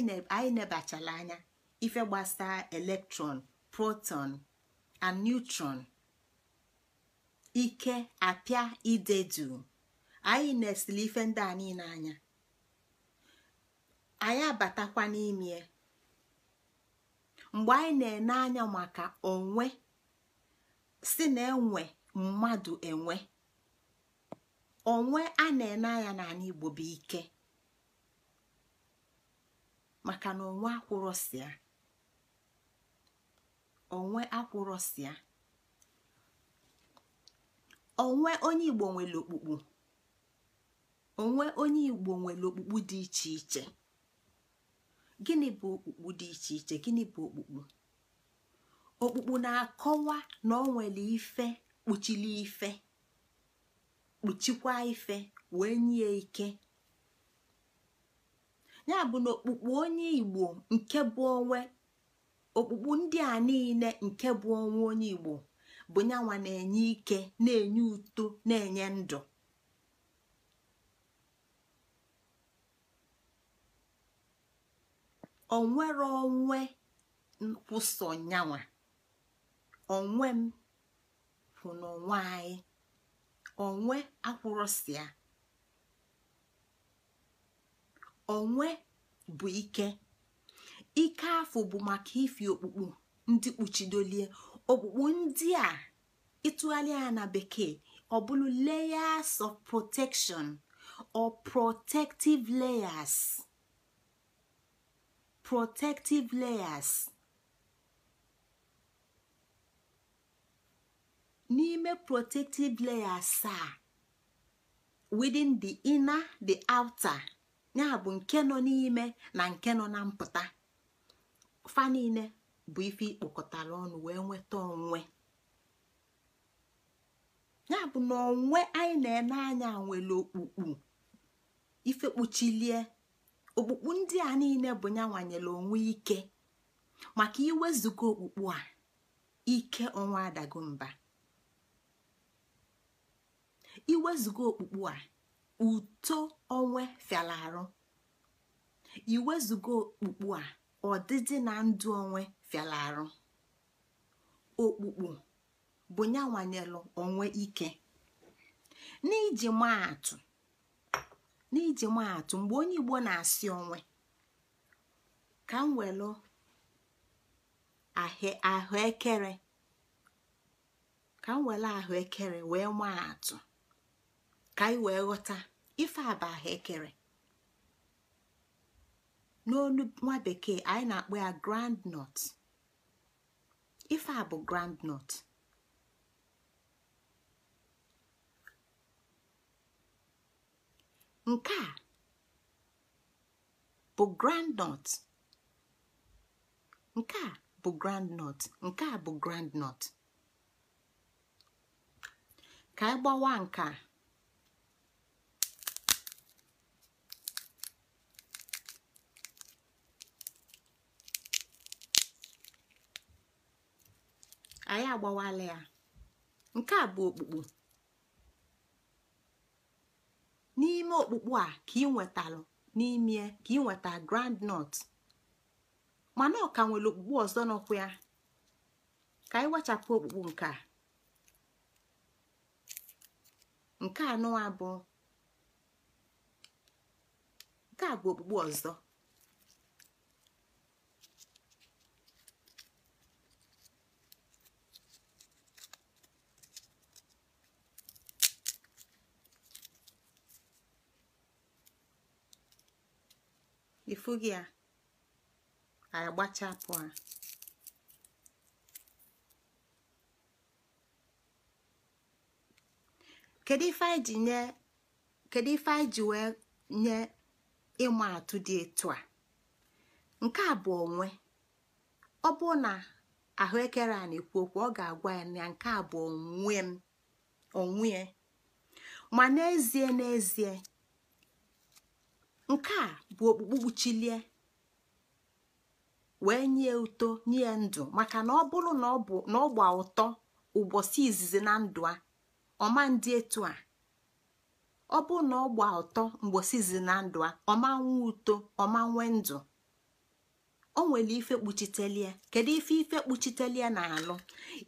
nebachala anya ife gbasara elektrọn, proton and neutron ike apịa ide duu anyị na-esili ife ndị a niile anya anyị abatakwa n'ime mgbe anyị na-ene anya maka onwe si na enwe mmadụ enwe onwe a na-ene anya n'ala igbo bụ ike maka na onwe akwụrọsịa onwe akwụrọsịa onwe onye igbo nwere okpukpu onwe onye igbo nwere okpukpu dị iche iche gịnị bụ okpukpu dị iche iche gịnị bụ okpukpu okpukpu na-akọwa na o nwere ife kpuchili ife kpuchikwa ife wee nye ike ya bụ na okpukpu onye igbo nke bụ onwe okpukpu ndị a niile nke bụ onwe onye igbo bụ yanwa na-enye ike na-enye uto na-enye ndụ onwere onwe nkwụsọ nyanwa onwe m na onwe anyị onwe akwụrọsịa onwe bụ ike ike afọ bụ maka ifi okpukpu ndị kpuchidolie okpukpu ndị a ịtụgharịa na bekee ọ bụrụ layers of protection or protective layers protective layers n'ime protective layer asaa within the inner the outer ya bụ nke nọ n'ime na nke nọ na mpụta fa niile bụ ife ikpokọtara ọnụ wee nweta onwe ya bụ na onwe anyị na-ene anya nwere okpukpu ife kpuchilie okpukpu ndị a niile bụ ya nwanyere onwe ike maka iwezuga okpukpu a ike onwe adago mba iwezuga okpukpu a uto onwe fiala arụ iwezuga okpukpu a ọdịdị na ndụ onwe fiala arụ okpukpu bụ ya onwe ike n'iji maa atụ n'iji mgbe onye igbo na-asị onwe ka m welụ ahụekere ka ahụekere wee maa atụ ka anyị wee ghọta ife aba ekere N'olu nwa bekee anyị na-akpọ ya groundnut ife a bụ groundnut nke a bụ groundnut nke a bụ groundnut nke a bụ groundnut ka anyị gbawa nke a. anyị agbawala ya nke a bụ okpukpu n'ime okpukpu a ka ị nwetalụ n'ime ka ị nweta grand nut mana ọ ka nwere okpukpu ọzọ n'ụkwụ ya ka anyị wechapụ okpukpu nke a nke anọ nke a bụ okpukpe ọzọ gị a agbachapụ a kedu ife anyị ji nye wee nye ịma atụ dị etu a nke a bụ onwe ọ bụ na ahụekere a na-ekwu okwu ọ ga-agwa ya na nke a bụ onwe m onwe ma n'ezie n'ezie nke a bụ okpukpu kpuchilie wee nye uto nye ndụ maka na ọ bụrụ na ọ gba ụtọ ụbọchị izizi na ndụ a ọma ndị etu a ọ bụrụ na ọ gba ụtọ mgbosi izizi na ndụ a ọma nwee uto, ọma nwee ndụ o nwere ife kpuchitelie kedu ife ife kpuchitelie na-alụ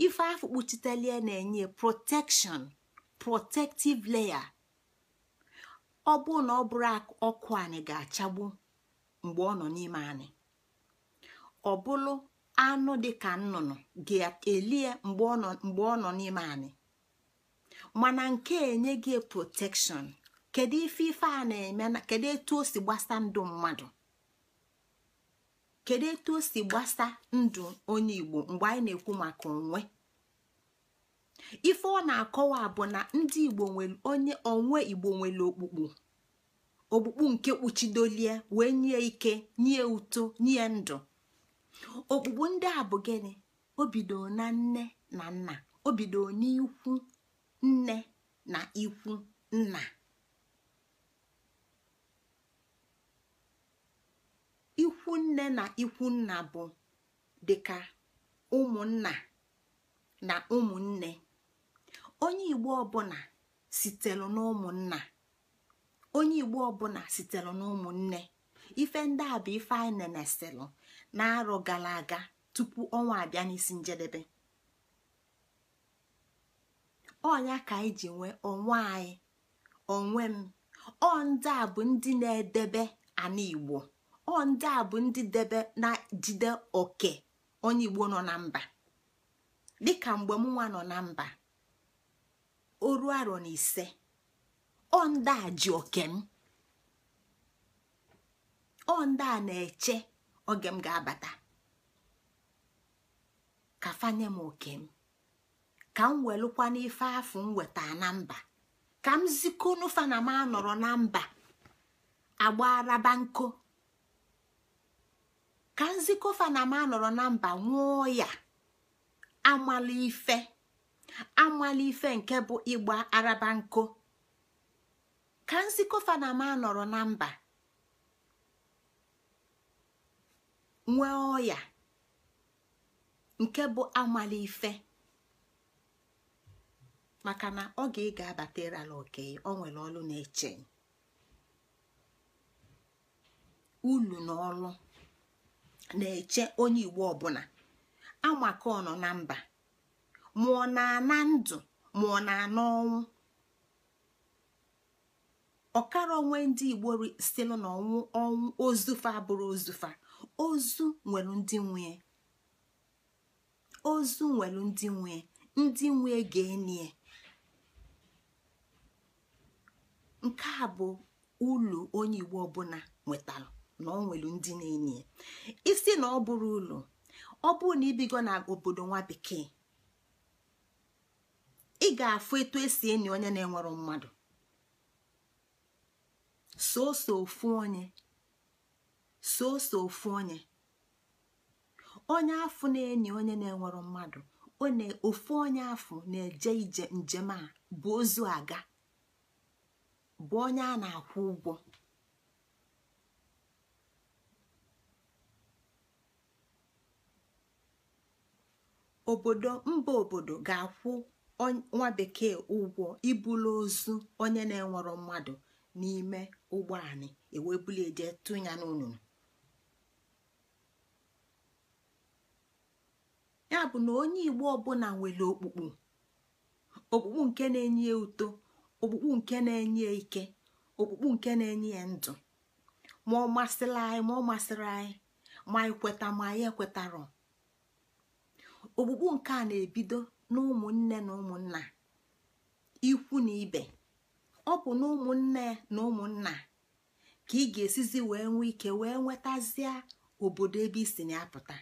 ife afọ kpuchitelie na-enye protection protective layer ọ bụrụ na ọ bụrụ ọkụ anyị ga-achagbu mgbe ọ nọ n'ime anyị ọ bụrụ anụ dịka nnụnụ ga-elie mgbe ọ nọ n'ime anyị mana nke enye gị protekshọn kedu ife ife a na-eme na kedu etu o si gbasa ndụ mmadụ kedu etu o si gbasa ndụ onye Igbo mgbe anyị na-ekwu maka onwe ife ọ na-akọwa bụ na ndị igbo nwere onye onwe igbo nwere okpukpu okpukpu nke kpuchidolie wee nye ike nye uto nye ndụ okpukpu ndị a bụ gịnị obido na nne na nna obido n'ikwu nne na ikwu nna ikwu nne na ikwu nna bụ dịka ụmụnna na ụmụnne onye igbo ọbụla sitere n'ụmụnna onye igbo ọbụla n'ụmụnne ife ndị a bụ ife anyị neneselu na-arọ gara aga tupu ọnwa abịa n'isi njedebe ọnya ka anyị ji nwee onwe anyị onwe m ọ ndị a bụ ndị na-edebe ana igbo ọ ndị a bụ ndị debe na-jide oke onye igbo nọ na mba dịka mgbe mụnwa nọ na mba oru arọ na ise ọ ndị a ji oke m ọ ndị a na-eche oge m ga-abata ka fanye m oke m ka m welụkwa n'ife afụ m weta na mba ka m zikonufa na m anọrọ na mba agbaraba nko ka nzikofa na m anọrọ na mba nwụọ ya amala ife amala ife nke bụ ịgba araba nko ka ma nọrọ na mba nwee ọya nke bụ amala ife maka na ọ ga ịga ala oke ọ nwere ọlụ na-eche ulu na ọlụ na-eche onye igbo ọbụla amaka ọ nọ na mba mụọ ọ na-ana ndụ ma na-ana ọnwụ ọkara onwe ndị igbo si na ọnwụ ọnwụ ozufa abụrụ ozufa ozu nwere ndị nwee ozu nwere ndị nwee ndị ga-enye nke a bụ ụlọ onye igbo ọbụla nwetara na ọ nwere ndị na-enye isi na ọ bụrụ ụlọ ọ bụrụ na ibigo na obodo nwa bekee ị ga-afụ etu esi enyi onye na enwere mmadụ soso ofu onye ofu onye onye afụ na-enyi onye na-enwero mmadụ ofu onye afụ na-eje njem a bụ ozu aga bụ onye a na-akwụ ụgwọ obodo mba obodo ga-akwụ nwa bekee ụgwọ ibulu ozu onye na-enwero mmadụ n'ime ụgbọ anị ewebuli eje tụnya n'ụnụnụ ya bụ na onye igbo ọbụla nwere okpukpu okpukpu nke na-enye ya uto okpukpu nke na-enye ike okpukpu nke na-enye ya ndụ ma ọ masịrị anyị ma ọ masịrị anyị ma ekweta ma anyị ekwetarọ okpukpu nke a na-ebido na ụmụnne na ụmụnna ikwu na ibe ọ bụ na ụmụnne na ụmụnna ka ị ga-esizi wee nwee ike wee nwetazie obodo ebe isi na-apụta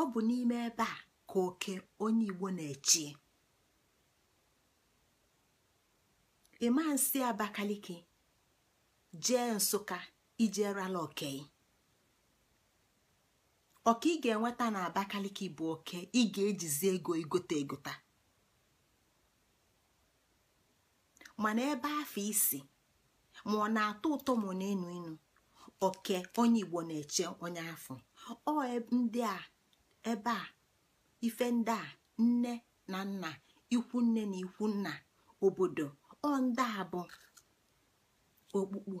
ọ bụ n'ime ebe a ka oke onye Igbo na-echi ịma nsị Abakaliki jee Nsụka ijerala okei ọka ị ga-enweta na bụ oke ị ga-ejizi ego igote egota mana ebe afọ isi ma ọ na-atọ ụtọ ma na-enu inu oke onye igbo na-eche onye afọ ọ ndị a ebe a ife ndị a nne na nna ikwu nne na ikwu nna obodo ọ ndị a bụ okpukpu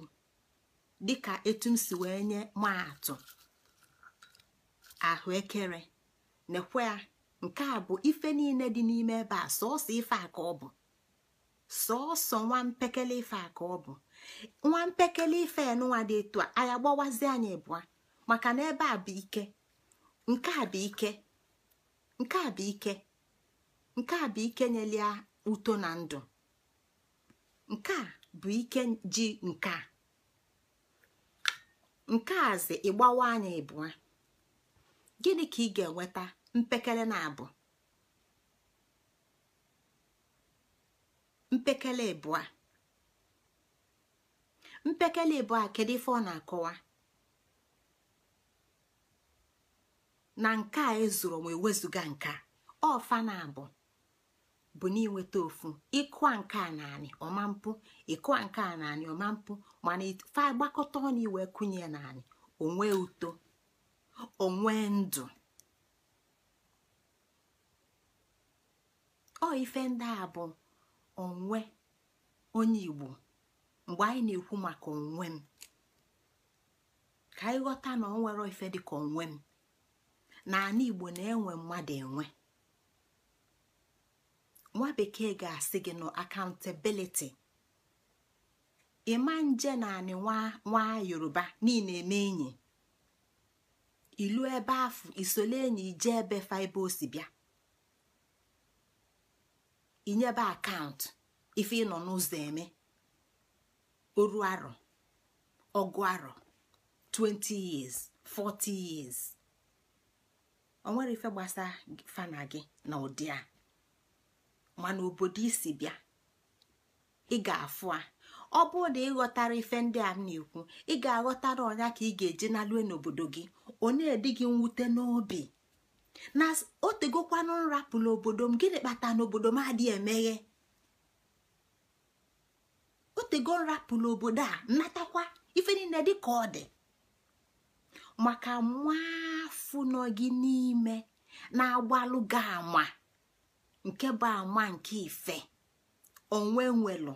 dịka etu si wee nye atụ. ahụekere nekwe ya nke a bụ ife niile dị n'ime ebe a sọsọ ife aka ka ọ bụ sọsọ nwa mpekele ife aka ka ọ bụ nwa mpekele ife nụnwa dị etu a anyị agbawazi anyị ịbụa maka na ebe a bụ ike nke a bụ ike nke a bụ ike nke a bụ ike nyelia uto na ndụ nke a bụ ike ji nke a nke a zi ịgbawa anyị ịbụa. gịnị ka ị ga-enweta mpekele na-abụ mpekele ịbụa mpekele ịbụa kedu ife ọ na-akọwa na nke a ezuru ma ewezuga nke ọfa na-abụ bụ n'inweta ofu ịkụ nke a naanị ọma mpụ a nke a naanị ọma mpụ mana ife agbakọta ọnụ iwe kụnye naanị onwe uto onwe ndụ ọ ife ndị a bụ onwe onye igbo mgbe anyị na-ekwu maka onwe m ka anyị ghọta na ọ nwere ife dịka onwe m na ana igbo na-enwe mmadụ enwe nwa bekee ga-asị gị na akantabiliti ịma nje na anị nwa yoruba niile eme enyi ilu ebe afụ isole enyi ije ebe faibe osi bịa inyebe akaụntụ ife ịnọ n'ụzọ eme oru arọ ọgụ arọ 20 years 40 years o nwere ife gbasa fana gị na ụdị a mana obodo isi bịa ị ga-afụ a ọ bụrụ na ịghọtara ife ndị a m na-ekwu ị ga-aghọtara ọnya ka ị ga-eje nalue n'obodo gị onye dị gị mwute n'obi na o tegokwanụ nrapụ n'obodo m gịnị kpata n'obodo m adịghị emeghe o tego nrapụ n'obodo a natakwa ife niile dị ka ọ dị maka nwafụ gị n'ime na-agbalụ gị nke bụ ama nke ife onwe nwelụ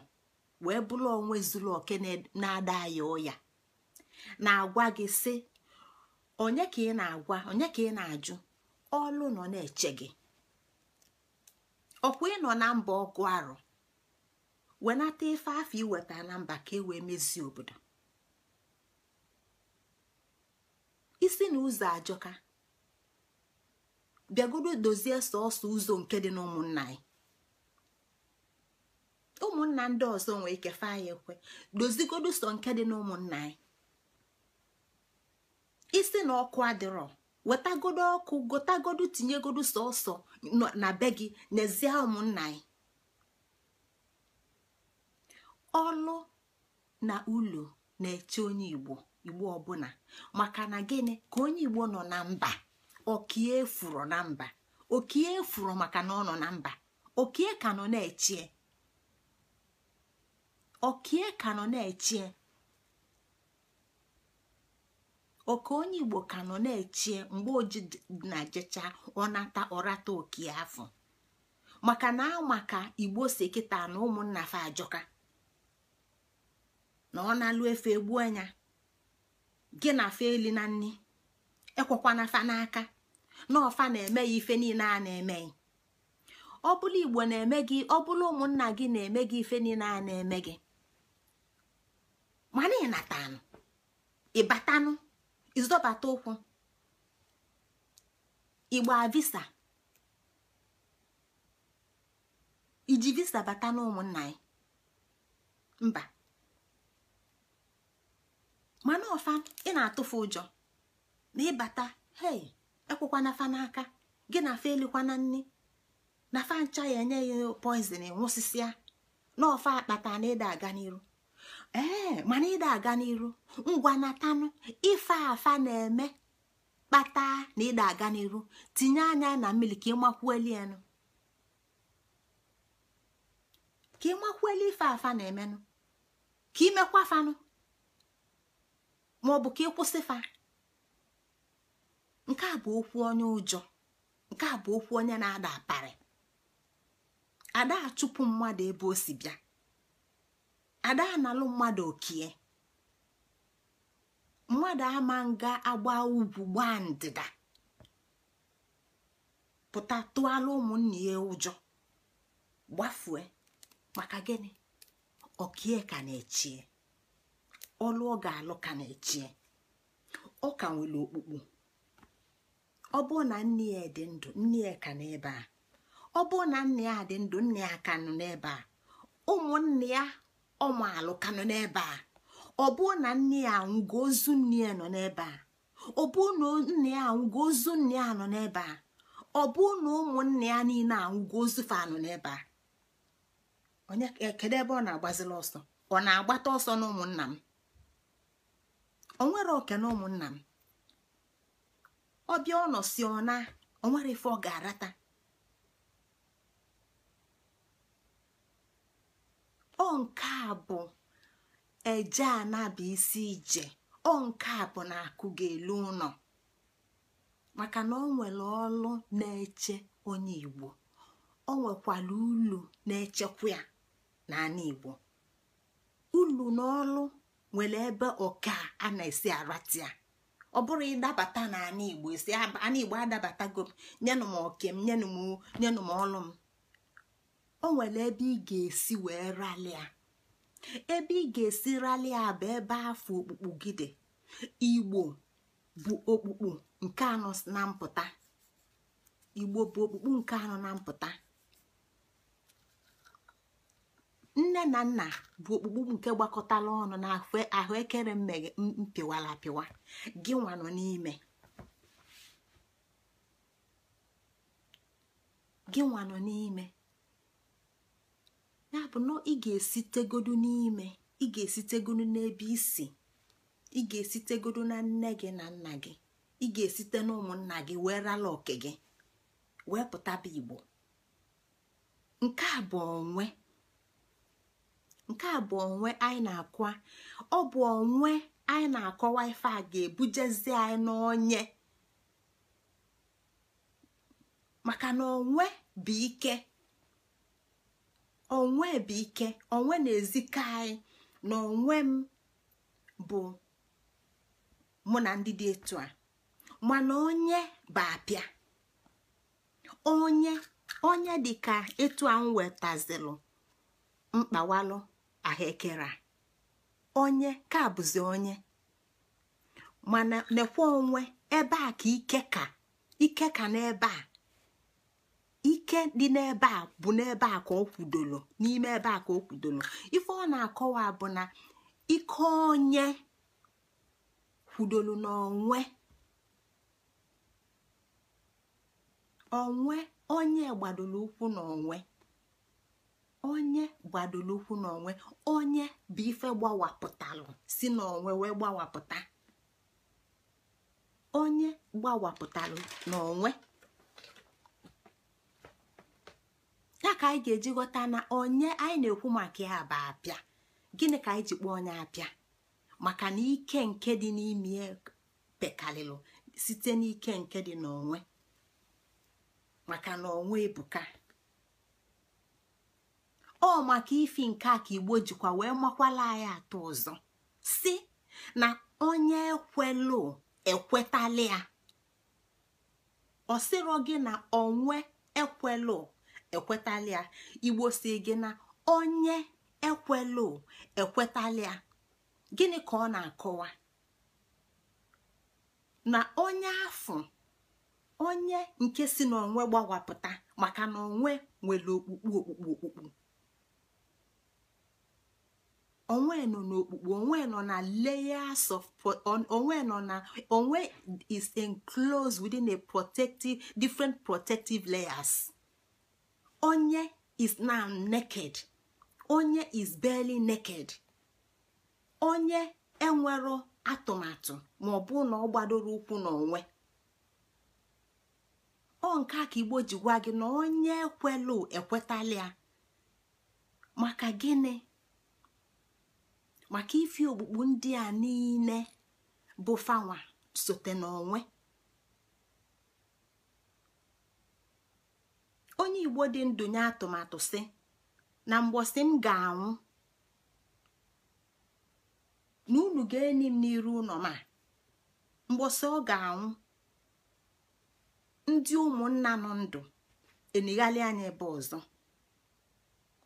wee bụrụ onwe zuru oke na-ada ya na-agwa gị si onye ka ị na-agwa onye ka ị na-ajụ ọlụ nọ na-eche gị ọkwa ịnọ na mba ọgụ arụ wenata ife afọ iweta na mba ka e wee mezie obodo isi na ụzọ ajọka bịagodo dozie sọọsọ ụzọ nke dị n'ụmụnna anyị na ndị ọzọ nwee ike fa ya ekwe dozigodu sọ nke dị n'ụmụnna anyị isi na ọkụ adịrọ wetagodo ọkụ gotagodu tinyegodu sọsọ na be gị n'ezie ụmụnna anyị ọlụ na ụlọ na-eche onye igbo igbo ọbụla maka na gịnị ka onye igbo nọ na mba okie furu na mba okie furu maka na ọ nọ na mba okie ka nọ na-echie okie ka nọ na-echie oke onye igbo ka nọ na-echie mgbe oji na jecha ọnata ọrata oke afọ maka na amaka igbo si kịta na ụmụnna fa ajọka na ọ na-alụ efe egbu anya gị na fa eli na nni ekwekwana fa n'aka na ọfa na-eme ya ife niile a na-emeghị ọ bụrụ igbo na-eme gị ọ bụrụ ụmụnna gị na-eme gị ife niile a na-eme gị mana ịnatanụ ịbatanụ ịzọbata ụkwụ ịgba visa iji visa bata n'ụmụnna ya mba mana ọfa ị na-atụfu ụjọ na ịbata hei ekwekwana fa n'aka gị na fa elikwana nne na fa ncha ya enye ya poizin nwụsịsịa na ọfa akpata na ịda aga n'iru ee eh, mana ịda aga n'iru ngwa natanụ ife afa na-eme kpata na ịda aga n'iru tinye anya na mmiri ka ịmakwueli enu ka ịmakwueli ife afa na-emenụ ka imekwa fanụ maọbụ ka ịkwụsị fa nke a bụ okwu onye ụjọ nke a bụ okwu onye na-ada aparị ada achụpụ mmadụ ebe o si bịa ada analụ mmadụ okie mmadụ ama nga agba ugwu gbaa ndịda pụta tụọla ụmụnne ya ụjọ gbafue maka gịnị okie ka na-echie ọlụ ọ ga-alụ ka na-echie ọ ka nwere okpukpu ọ bụ na nne ya dị ndụ nne ya ka n'ebe a ọ bụ na nne ya dị ndụ nne ya ka nọ n'ebe a ụmụnne ya ọmaalụ ka nọ n'ebe a ọ bụrụ na nne ya anwụgo ozu nne ya nọ n'ebe a ọ bụrụ na nne ya anwụgo ozu nne ya nọ n'ebe a ọ bụrụ na ụmụnne ya niile anwụgo ozu fa nọ n'ebe a onye e, kedu ebe ọ na-agbazila ọsọ ọ na-agbata ọsọ na ụmụnna m o nwere oke na ụmụnna m ọbịa ọ nọ si ọ na onwere ife ọ ga-arata ọ nke a bụ eje anaba isi ije ọ nke a bụ na akụ ga-elu ụlọ maka na ọ nwere ọlụ na-eche onye igbo o nwekwara ulu na-echekwa ya n'ala igbo ulu na ọlụ nwere ebe ọka a na-esi aratia ọ bụrụ ịdabata n'ala igbo esi ala igbo adabata nyenụ m oke m ọlụ m o nwere ebe ị ga-esi wee ralịa ebe ị ga-esi ralịa bụ ebe afọ okpukpu gị dị igbo bụ okpukpu nke anọ na mpụta igbo bụ okpukpu nke anọ na mpụta nne na nna bụ okpukpu nke gbakọtala ọnụ na ahụekere mmeghe mpịwara gị n'ime gị nwa nọ n'ime ya bụ na ị ga-esitegodu n'ime ị ga-esitegodu n'ebe isi ị ga-esitegodu na nne gị na nna gị ị ga-esite na ụmụnna gị wee rala oke gị wee pụtaba igbo nke a bụ onwe nke a bụ onwe anyị na-akwa ọ bụ onwe anyị na-akọwa ife a ga-ebujezi anyị n'onye maka na onwe bụ ike onwe bụ ike onwe na-ezika na onwe m bụ mụ na ndị dị etu a mana onye bụ apịa onye onye ka etu a m wetazilụ mkpawalụ ahekere onye ka bụzi onye mana nekwa onwe ebe a ka ike ka ike ka n'ebe a ike dị n'ebe a bụ n'ebe a ka ọ kwudoro n'ime ebe a ka o kwudoro ife ọ na-akọwa bụ na ike onye kwudoro n'onwe onwe onye gbadoro n'onwe onye gbadoro ụkwụ n'onwe onye bụ ife gbawapụtalụ si n'onwe wee gbawapụta onye gbawapụtalụ n'onwe ya ka anyị ga-eji ghọta na onye anyị na-ekwu maka ya bụ apịa gịnị ka anyị ji kpọọ onye apịa maka na ike nke dị n'ime pekalịlụ site n'ike nke dị n'onwe maka na onwe ebuka ọ maka ifi nke a ka igbo jikwa wee makwala anyị atọ ọzọ si na onye ekwelụ ekwetala ya ọ sịrọ gị na onwe ekwelu ekwetalia igbo si gị na onye ekwelu ekwetalia gịnị ka ọ na-akọwa na onye ahu onye nke si n'onwe gbawapụta maka na onwe nwere okpukpu okpukpu okpukpu onwe nọ n'okpukpu onwe nọ na layers of onwe nọ na onwe is enclosed within a protective different protective layers. onye is now naked onye is barely naked onye enwero atụmatụ ma ọ bụ na ọ gbadoro ụkwụ n'onwe ọ nke a ka igbo ji gwa gị na onye ekwelu ekwetala maka gịnị maka ife okpukpu ndị a niile bụ fanwa sote n'onwe onye igbo dị ndụ nye atụmatụ sị na mgbọsị m ga-anwụ na unu ga-eni m n'iru ụlọ ma mgbọsị ọ ga-anwụ ndị ụmụnna nọ ndụ enighalị anya ebe ọzọ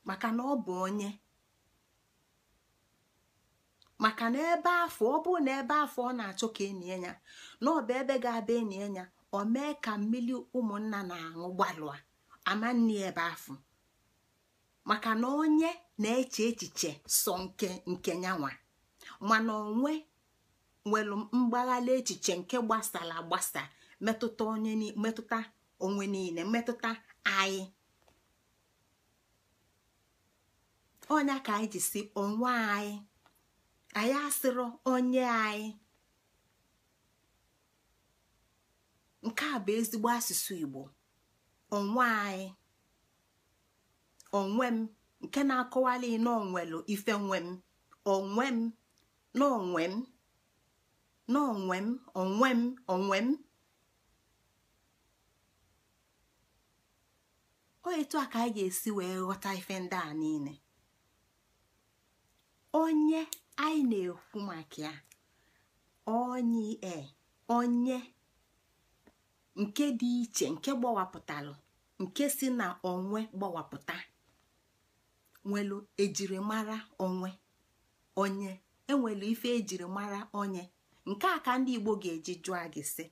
maka na ọ bụ onye maka na ebe afọ ọ bụ na ebe afọ ọ na-achọ ka enye ya na ọ bụ ebe ga-abịa enye ya ọ mee ka mmiri ụmụnna na-aṅụ gbalụa amanne ebe afọ maka na onye na-eche echiche sọ nke nke nyanwa mana onwe nwere mgbaghala echiche nke gbasara agbasa metụta onye metụta onwe niile mmetụta anyị onye ka anyị ji onwe anyị anyị asịrọ onye anyị nke a bụ ezigbo asụsụ Igbo onwe anyị onwe m nke na-akọwali n'onwelu ife nwe m onwe m n'onwe m m onwe m onwe m o a ka anyị ga-esi wee ghọta ife ndị a niile onye anyị na-ekwu maka ya onye onye nke dị iche nke gbawapụtalụ nke si na onwe gbawapụta nwelu ejirimara onwe onye enwelu ife ejirimara onye nke a ka ndị Igbo ga-eji jụọ gị si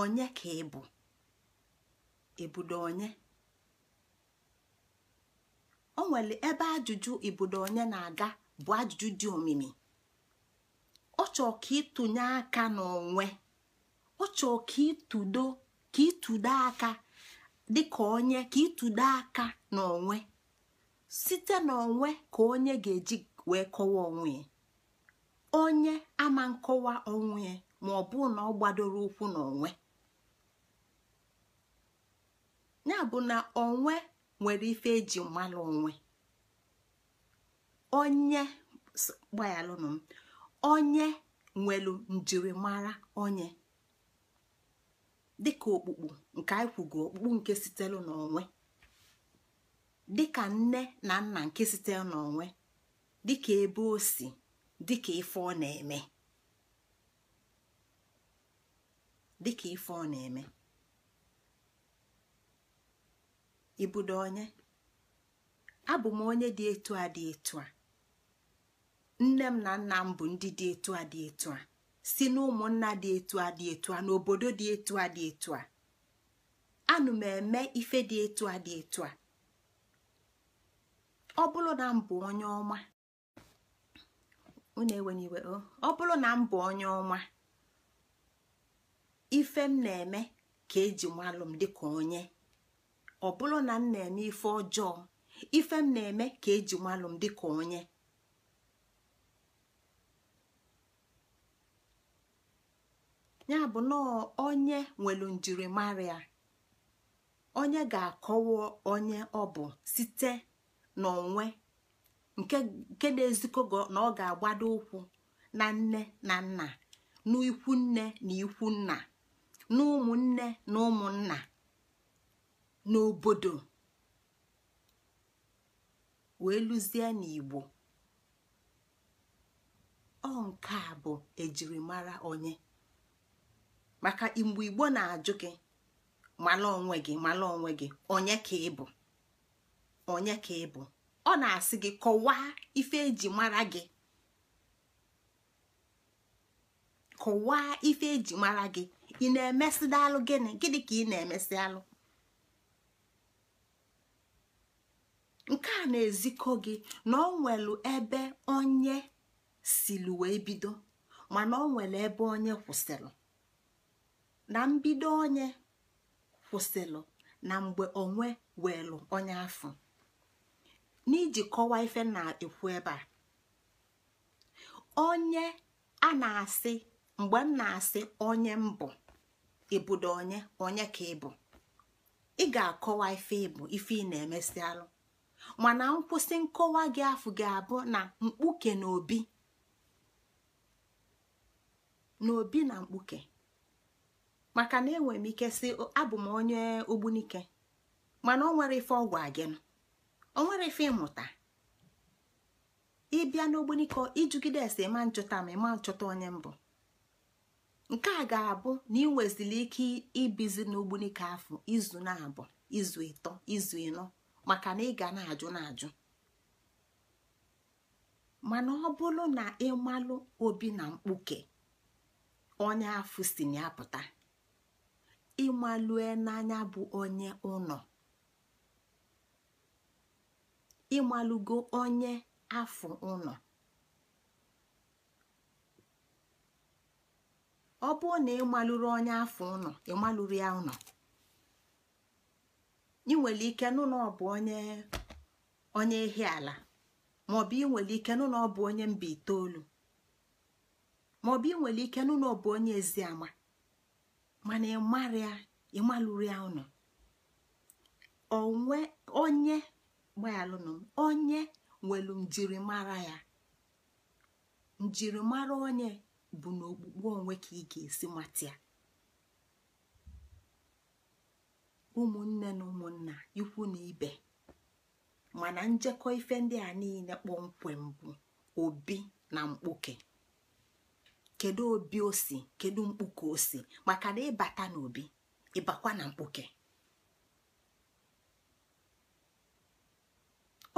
onye ka ị bụ ebudo onye o nwere ebe ajụjụ ibudo onye na-aga bụ ajụjụ dị omimi ọ chọọ ka ịtụnye aka n'onwe ọ chọọ ka ịtụdo aka dịka onye ka ịtụdo aka n'onwe site n'onwe ka onye ga-eji wee kọwa onwe onye ama nkọwa onwe ma ọ bụ na ọ gbadoro ụkwụ n'onwe ya bụ na onwe nwere ife eji mmalụ onwe onye gbaghalụnụ m onye nwelu njirimara onye dịka okpukpu nke anyị kwugo nke sitelu n'onwe dịka nne na nna nke sitere n'onwe dịka ebe o si dịka ife ọ na-eme dịka ife ọ na-eme ibudo onye abụ m onye dị etu a dị etu a nne m na nna m bụ ndị dị etu a dị etu a si na dị etu a dị etu a n'obodo dị etu a dị etu a anụ m eme ife dị etu a dị etu a ọ bụrụ na mbụ onye ọma ụnụ enwere iwe oh, ọ bụrụ na mbụ onye ọma ife m na-eme ka eji nwalụ m dịka onye ọ bụrụ na m na-eme ife ọjọọ ife m na-eme ka eji nwalụ m dịka onye ya bụ na onye nwelu njirimara onye ga-akọwa onye ọ bụ site n'onwe nke na ezikọ na ọ ga-agbado ụkwụ na nne na nna n'ikwu nne na ikwu nna na nne na ụmụnna n'obodo wee lụzie n'igbo ọ nke a bụ ejirimara onye maka mgbe igbo na-ajụ gị mala onwe gị mala onwe gị onye ka ị bụ onye ka ị bụ ọ na-asị gị kọwaa ife eji mara gị kọwaa ife eji mara gị ị na alụ gịnị gịnị ka ị na-emesị alụ nke a na-ezikọ gị na ọ nwelu ebe onye siri wee bido mana ọ nwere ebe onye kwụsịrị na mbido onye kwụsịlụ na mgbe onwe weelụ onye afọ n'iji kọwa ife na-ekwu ebe a onye a na-asị mgbe m na-asị onye mbụ ịbụdo onye onye ka ịbụ ị ga-akọwa ife ịbụ ife ị na-emesialụ mana nkwụsị nkọwa gị afụ gị abụ na mkpuke na obi na mkpuke maka na enwere m ike si abụ m onye ogbunike mana onwere nwere ife ọgwụ agịnụ ọ nwere ife ịmụta ịbịa n'ogbunike ijugide ese ma nchụta ma ịma nchụta onye mbụ nke a ga-abụ na ị ike ibizi n'ogbunike afọ izu na-abụ izu ịtọ izu ịnọ maka na ịga na-ajụ na-ajụ mana ọ bụrụ na ịmalụ obi na mkpuke onye afụ si na ya ịmalue n'anya bụ onye ụnọ ịmalụgo onye afọ ụnọ ọ bụrụ na ịmalụrụ onye afọ ụnọ ịmalụrụ ya ụnọ ị nwere ike nụ na ọ bụ onye onye ehi ala ma bụ ị nwere ike nụ na ọ bụ onye mba itoolu ma bụ ị nwere ike nụ na ọ bụ onye eziama mana ịmalụrụ ya ụnụ onye gbayalụnụ onye nwelu njirimara ya njirimara onye bụ n'okpukpe onwe ka ị ga-esi mata ya ụmụnne na ụmụnna ikwu na ibe mana njekọ ife ndị a niile kpọmkwem bụ obi na mkpuke kedu obi osi, si kedu mkpu ka o si maka na ịbata n'obi ịbakwa na mkpuke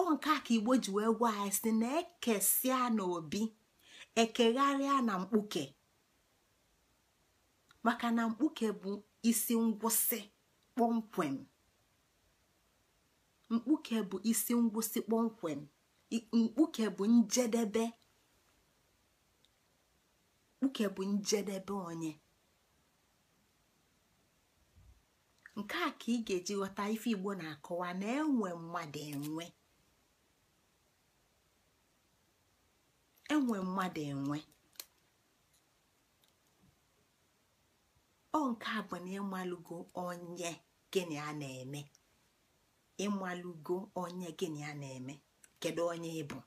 ọ nke a ka igbo ji wee gwa anyị si na ekesịa n'obi ekegharịa na mkpuke maka na mkpuke bụ isi ngwụsị kpọmkwem mkpuke bụ isi ngwụsị kpọmkwem mkpuke bụ njedebe nke bụ njedebe onye nke a ka ị ga-eji ghọta ife igbo na-akọwa na enwe mmadụ enwe enwe nke a bụ na ịmalụgo onye gịnị a na-eme ịmalụgo onye gịnị a na-eme kedu onye ị bụ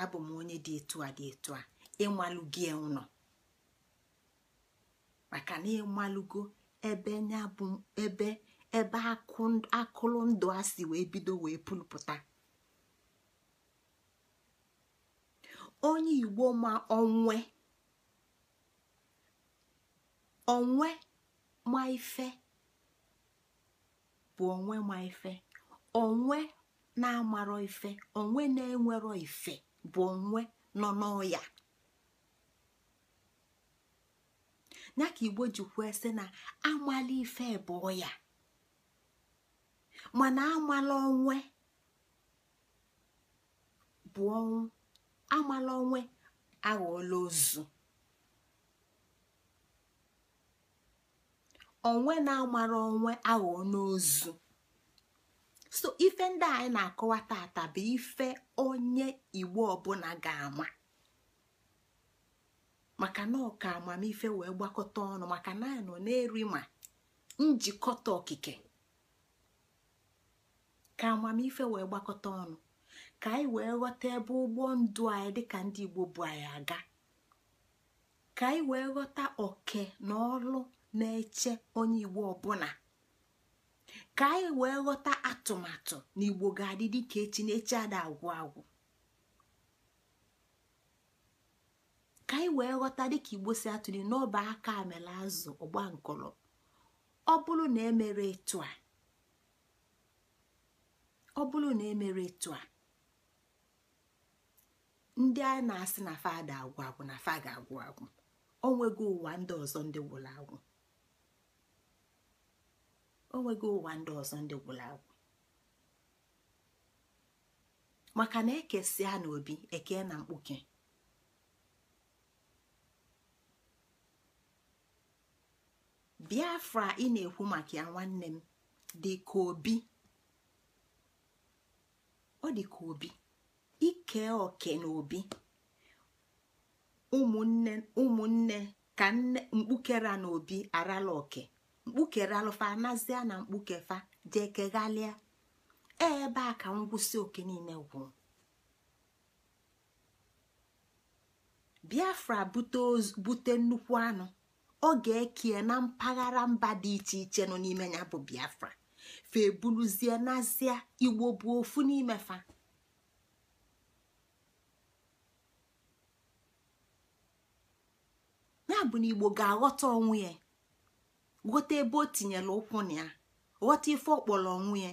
abụ m onye dị etu a dị etu a ịmalụgi ụnọ maka na ịmalụgo ebe nya bụ ebe ebe ndụ a si wee bido wee pụlpụta onye igbo ma onwe onwe ma ife bụ onwe ma ife onwe na-amarọ ife onwe na-enwerọ ife bụ onwe nọ n'ọya ya ka igbo jikwuo sị na amala ife bụọ ya mana amala onwe bụ ọnwụ amala onwe aghọọla ozu onwe na-amara onwe aghọọ n'ozu so ife ndị anyị na-akọwa tata bụ ife onye igbo ọbụla ga-ama maka na ọka amamife wee gbakọta ọnụ maka na nọ na-eri ma njikọta okike ka amamife wee gbakọta ọnụ ka anyị wee ghọta ebe ụgbọ ndụ anyị dịka ndị Igbo bụ anyị aga ka anyị wee ghọta oke na ọrụ na-eche onye Igbo ọbụla ka anyị wee ghọta atụmatụ na Igbo ga-adị dịka echi na ada agwụ agwụ ka anyị wee ghọta dịka igbo si atụli n'ọba aka amela azụ ọgba nkọrọ ọ bụrụ na emere etu a e etu a ndị a na-asị na fada agwụ agwụ na fa ga-agwụ agwụ onwego ụwa ndị ọzọ ndị gwụrụ agwụ maka na ekesịa n'obi eke na mkpuke biafra ị na-ekwu maka ya nwanne m dị ka obi ọ dị ka obi ike oke na obi ụmụnne ụmụnne ka nne mkpukere na obi arala oke mkpukere alụfa nazia na mkpukefa jee ebe a ka ngwụsị oke niile gwụrụ biafra bute nnukwu anụ ọ ga-ekie na mpaghara mba dị iche iche nọ n'ime ya bụ biafra fa ebuluzie n'azịa igbo bụ ofu n'ime fa ya bụ na igbo ga-aghọta onwe ya ghọta ebe o tinyere ụkwụ na ya ghọta ife ọkpọrọ onwe ya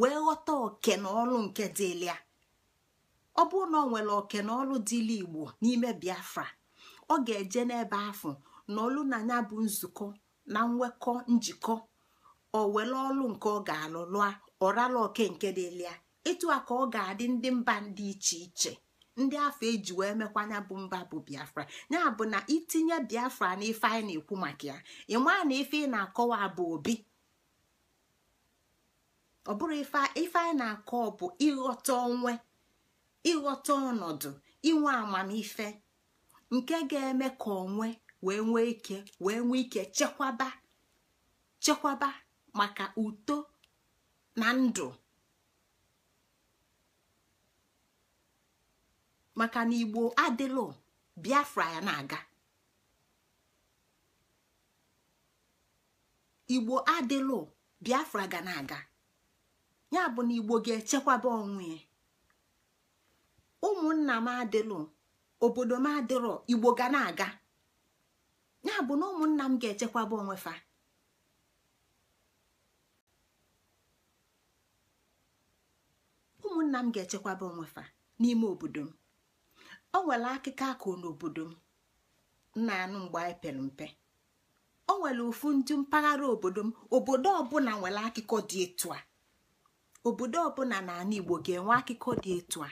wee ghọta oke na ọrụ nke dịlị ya ọ bụrụ na ọ nwere oke na ọrụ dịlị igbo n'ime biafra ọ ga-eje n'ebe afọ na ọlụ na ya bụ nzukọ na nwekọ njikọ ọ were ọlụ nke ọ ga-alụ lụa ọrala oke nke dịlịa ịtụ a ka ọ ga-adị ndị mba dị iche iche ndị afọ eji wee mekwa ya bụ mba bụ biafra ya bụ na itinye biafra na ife anyị na-ekwu maka ya ịmaa na ife ị na-akọwa bụ obi ọ bụrụ ife anyị na-akọ bụ ịghọta onwe ịghọta ọnọdụ inwe amamife nke ga-eme ka onwe wee nwee ike wee nwee ike chekwaba chekwaba maka uto na ndụ maka na igbo adịlụ biafra ya na-aga igbo adịlụ biafra ga na-aga ya bụ na igbo ga-echekwaba onwe ya ụmụnna m adịlụ obodo m adịrọ igbo ga na-aga ya bụ na ụmụnna m ga-echekwaba onwe fa ụmụnna m ga-echekwaba onwe fa n'ime obodo m o nwere akụkọ akụ n'obodo m nna anụ mgbe anyị pere mpe o nwere ofu ndị mpaghara obodo m obodo ọbụla nwere akụkọ dị etu a obodo ọbụla n'anụ Igbo ga-enwe akụkọ dị etu a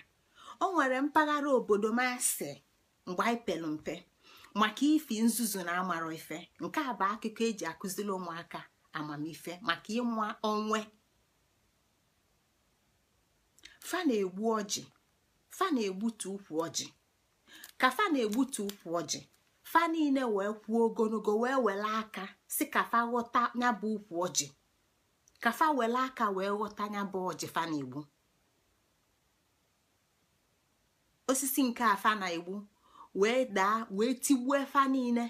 o nwere mpaghara obodo m asị mgbe anyị pere mpe maka ifi nzuzu na amara ife nke a bụ akụkọ eji akụziri ụmụaka amamife maka ịnwa onwe fa na-egbu ọjị fa na-egbutu ukwu ọjị ka fa na-egbutu ukwu ọjị fa niile wee kwuo ogologo wee were aka si ka fa ghọta ya bụ ukwu ọjị ka fa were aka wee ghọta ya bụ ọjị fa na-egbu osisi nke a fa na-egbu wee daa wee tigbuo efa niile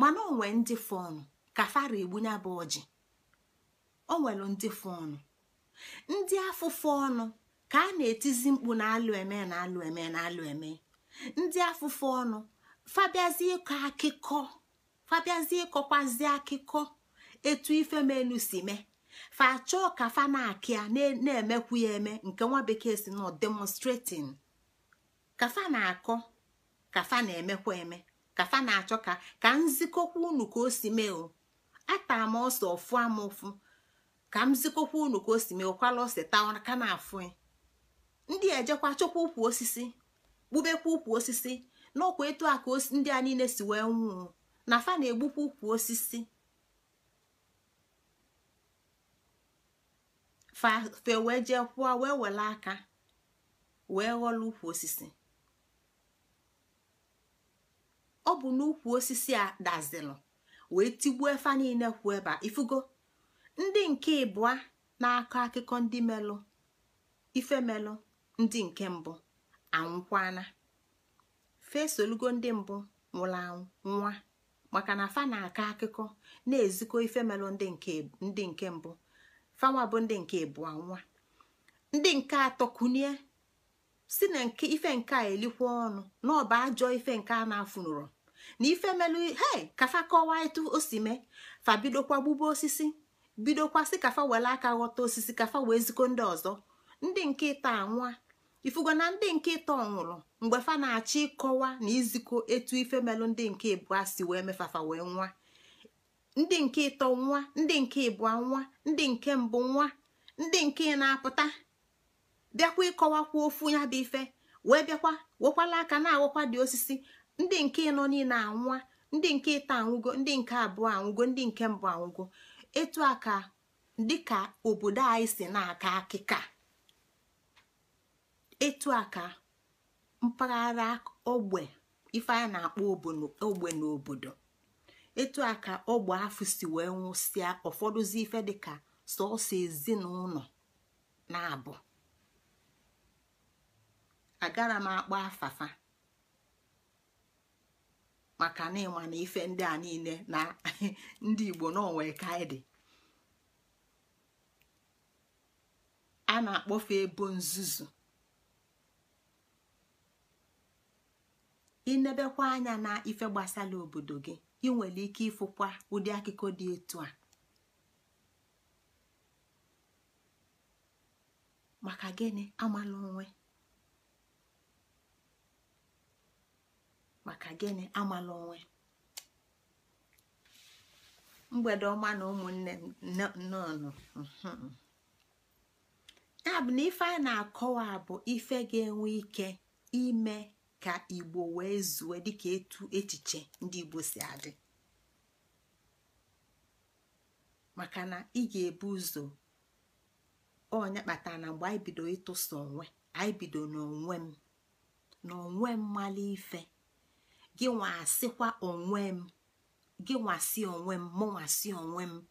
mana onwe ndị fọnụ ka fara egbunye bụ ọjị o nwere ndị fọnụ ndị afụfụ ọnụ ka a na-etizi mkpu na-alụ eme na-alụ eme na-alụ eme ndị afụfụ ọnụ fabiazie ịkọ akụkọ fabiazie ịkọkwazi akụkọ etu ife menu si mee fa chọọ ka fa na-akịa na-emekwu ya eme nke nwa bekee si nọ demonstrating kafa na-akọ kafa na-emekwa eme kafa na-achọ ka ka nzikọkwa unu ka o si mee o ata m ọsọ ọfụ ama ụfụ ka m zikọkwa unu ka o si mee ụkwala ọsị taa ka na-afụ ndị ejekwa chọkwa ụkwụ osisi kpubekwa ụkwụ osisi n'ọkwa etu a ndị a niile si wee nwụọ na fa na-egbukwa ụkwụ osisi fa wee jee kwụọ wee were aka wee ghọlụ ụkwụ osisi ọ bụ n'ukwu osisi a dazilụ wee tigbuo efa niile kwuo ebe a ifugo ndị nke ịbụa na-akọ akụkọ ndị melụ ife melụ ndị nke mbụ anwụkwana fesolugo ndị mbụ nwụrụ anwụ nwa maka na fa na-akọ akụkọ na-ezikọ ife melụ ndị nke mbụ fanwa bụ ndị nke ịbụa nwa ndị nke atọ kunie si na ife nke a elikwa ọnụ na ọ ajọ ife nke a na-afunụrụ na ife melu hei kafa kọwaa etu o si mee fa bidokwa gbube osisi bidokwa si kafa were aka ghọta osisi kafa wee ziko ndị ọzọ ndị nke ịta anwa ifugo na ndị nke ịta ọnwụrụ mgbe fa na-achọ ịkọwa na izikọ etu ife melu ndị nke ịbụa si wee mefafa wee nwa ndị nke ịtọ nwa ndị nke ịbụa nwa ndị nke mbụ nwa ndị nke na-apụta bịakwa ịkọwakwa ofu ya bụ ife wee bịakwa wekwala aka na-awakwa dị osisi ndị nke nọ niile anwa ndị nke ịta anwụgo ndị nke abụọ anwụgo ndị nke mbụ anwụgo etu a ka dịka obodo anyị si na-aka akịka etu a ka mpaghara ogbe ife na-akpọ ogbe n'obodo etu a ka ogbe afụ si wee nwụsịa ụfọdụzi ife dịka sọọsọ ezinụlọ na-abụ agara m akpọ afafa maka na na ife ndị a niile na ndị igbo n'onwe ka anyị a na-akpọfe ebo nzuzu inebekwa anya na ife gbasara obodo gị ị nwere ike ịfụkwa ụdị akụkọ dị etu a maka gịnị amala onwe maka gịnị amala onwe mgbede ọma na ụmụnne nnọọ ya bụ na ife anyị na-akọwa bụ ife ga-enwe ike ime ka igbo wee zue dịka etu echiche ndị igbo si adị maka na ị ga-ebu ụzọ onye kpatara na mgbe anyị bido ịtụsa onwe anyị bido n'onwe m na m ife gị asịkwa onwe m gị onwe m onwe m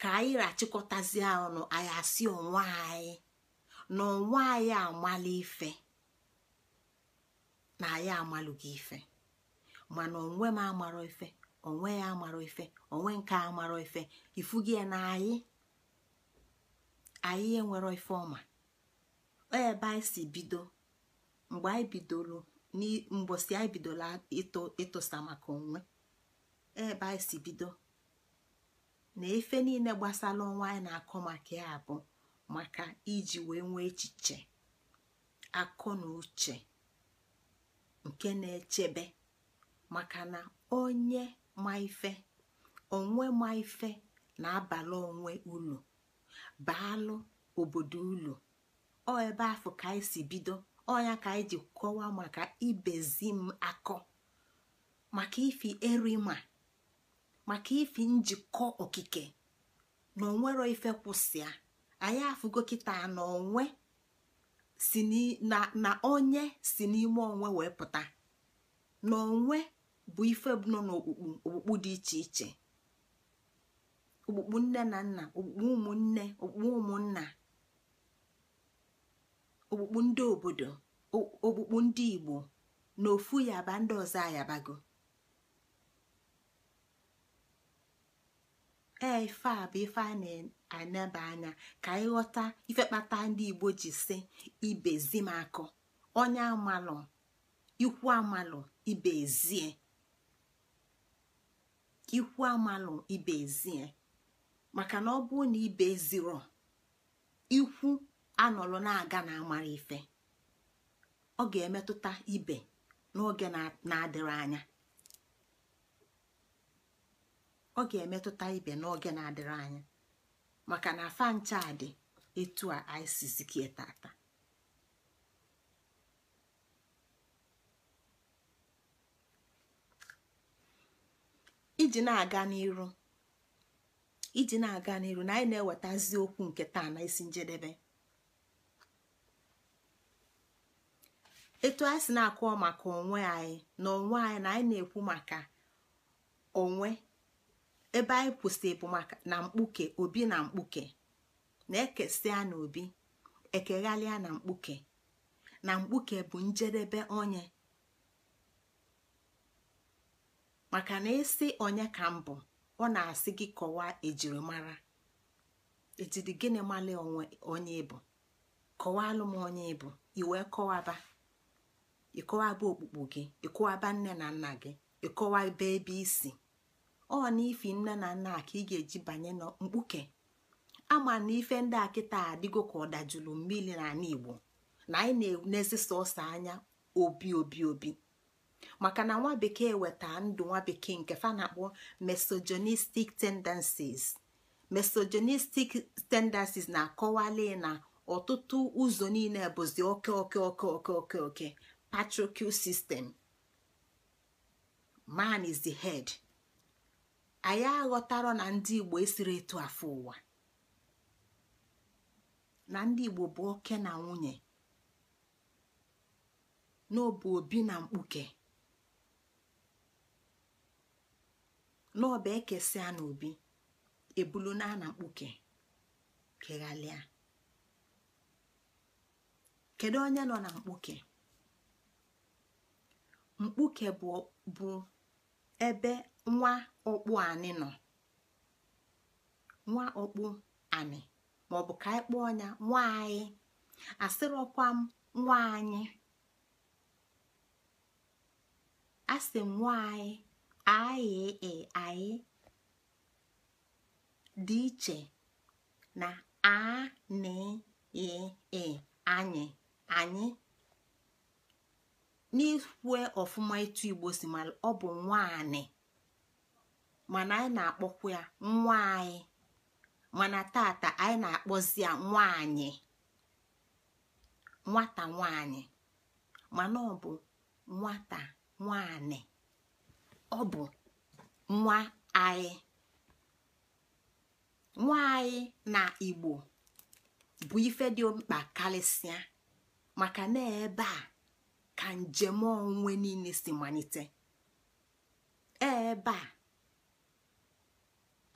ka anyị rachịkọtazie ọnụ anyị asị onwe anyị na onwe anyị amala ife na anyị amalụghị ife mana onwe m amarọ ife onwe ya amara ife onwe nke amara ife ifugi na anyị anyị enwero ife ọma ebe anyị si bido mgbe anyị bidoro mgbọsị anyị bidola ịtụsa maka onwe ebe anyị si bido na efe niile gbasara ọnwa anyị na-akọ maka ya bụ maka iji wee nwee echiche akọ na uche nke na-echebe maka na onye ma ife onwe ma ife na abalị onwe ulu baalụ obodo ụlọ ọ ebe afọ ka anyị si bido ọnya ka anyị e ji kọwaa maka ibezi m akọ maka ifi erima maka ifi njikọ okike na onwero ife kwụsịa anyị afụgo kịta na onwe si na onye si n'ime onwe wee pụta na onwe bụ ife nọ n'okpukpu okpukpu dị iche iche okpukpu nne na nna okpukpu ụmụnne okpukpu ụmụnna okpukpu ndị obodo okpukpu ndị igbo na ofu yaba ndị ọzọ ayabago ee ife a bụ ife a na-anaba anya ka anyị ifekpata ife ndị igbo ji si ibezi m onye amalụ ikwu amalụ ibezie," ezie amalụ ibezie," maka na ọ bụrụ na ibe ziro ikwu anọlụ na-aga na amara ife ọ ga-emetụta ibe n'oge na-adịrị anya emetụta ibe n'oge na-adịrị anya maka na afa etu a isizikie tata iji na-aga n'iru iji na-aga n'iru na anyị na-ewetazi okwu nke taa na isi njedebe etu anyị si na-akụọ maka onwe anyị na onwe anyị na anyị na-ekwu maka onwe ebe anyị kwụsị bụ maka na mkpuke obi na mkpuke na-ekesịa na obi ekeghalịa na mkpuke na mkpuke bụ njedebe onye maka na ịsị onye ka mbụ ọ na-asị gị kọwaa ejirimara ejiri gịnị mala onye bụ kọwalụ m onye ịbụ iwee kọwaba ịkọwaba okpukpu gị ịkọwaba nne na nna gị ịkọwa ebe isi ọ na ifi nne na nna ka ị ga-eji banye na mkpuke ama na ife ndị a kịta adịgo ka ọ dajụlụ mmiri ana igbo na anyị na enezi ọsọ anya obi obi obi maka na nwa bekee weta ndụ nwa bekee nke fa na-akpọ misogynistic tendencies misogynistic tendencies na-akọwali na ọtụtụ ụzọ niile bụzi oke oke oke oke oke oke patriarchal sistem man is the head anyị aghọtara na ndị igbo esiri etu afọ ụwa na ndị igbo bụ oke na nwunye n'ọbụ obi na mkpuke n'ọba ekesia na obi ebulu na na mkpuke keghalịa kedu onye nọ na mkpuke mkpuke bụ ebe nwa ọkpụ anị nọ nwa ọkpụ anị maọbụ ka anyị kpụọ ya nwa anyị asịrọkwa m nwa anyị asị m nwa anyị anyị e anyị dị iche na a na e e anyị anyị n'ikwe ọfụma ịtụ igbo si ma ọ bụ nwanyị mana anyị na-akpọkwa ya nwa mana tata anyị na-akpọzi ya nwaanyị nwata nwaanyị mana ọ bụ nwata nwaanyị ọ bụ nwa anyị nwa anyị na igbo bụ ife dị mkpa karịsịa maka na ebe a ka njem onwe niile si malite ebe a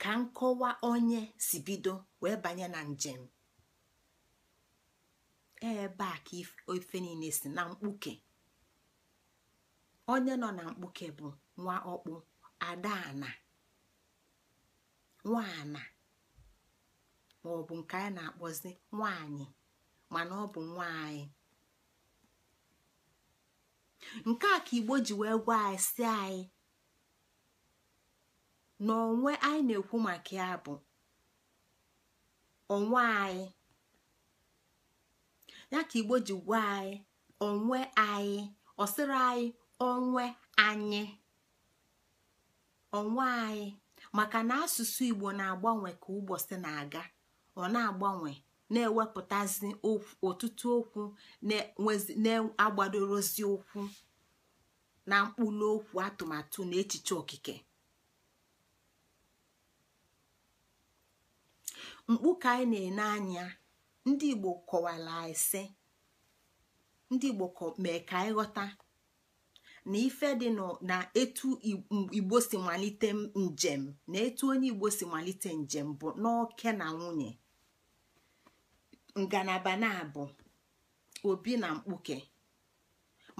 ka nkọwa onye si bido wee banye na njem ebe a ka ife niile si na mkpuke onye nọ na mkpuke bụ nwa ọkpụ adaana nwaana maọbụ nke anyị na-akpọzi nwaanyị mana ọ bụ nwaanyị nke a ka igbo ji wee gwa anyị si anyị na onwe anyị na-ekwu maka ya bụ onwe anyị ya ka igbo ji gwa anyị onwe anyị ọsịrị anyị onwe anyị onwe anyị maka na asụsụ igbo na-agbanwe ka ụbọchị na-aga ọ na-agbanwe na-ewepụtazi ọtụtụ okwu na-agbadorozi okwu na mkpụrụ okwu atụmatụ na echiche okike mkpu ka anyị na-ene anya ndị igbo kọwara ise ndị igbo mee ka anyị ghọta na ife dị na etu igbo si malite njem na etu onye igbo si malite njem bụ n'oke na nwunye ngalaba na-abụ obi na mkpuke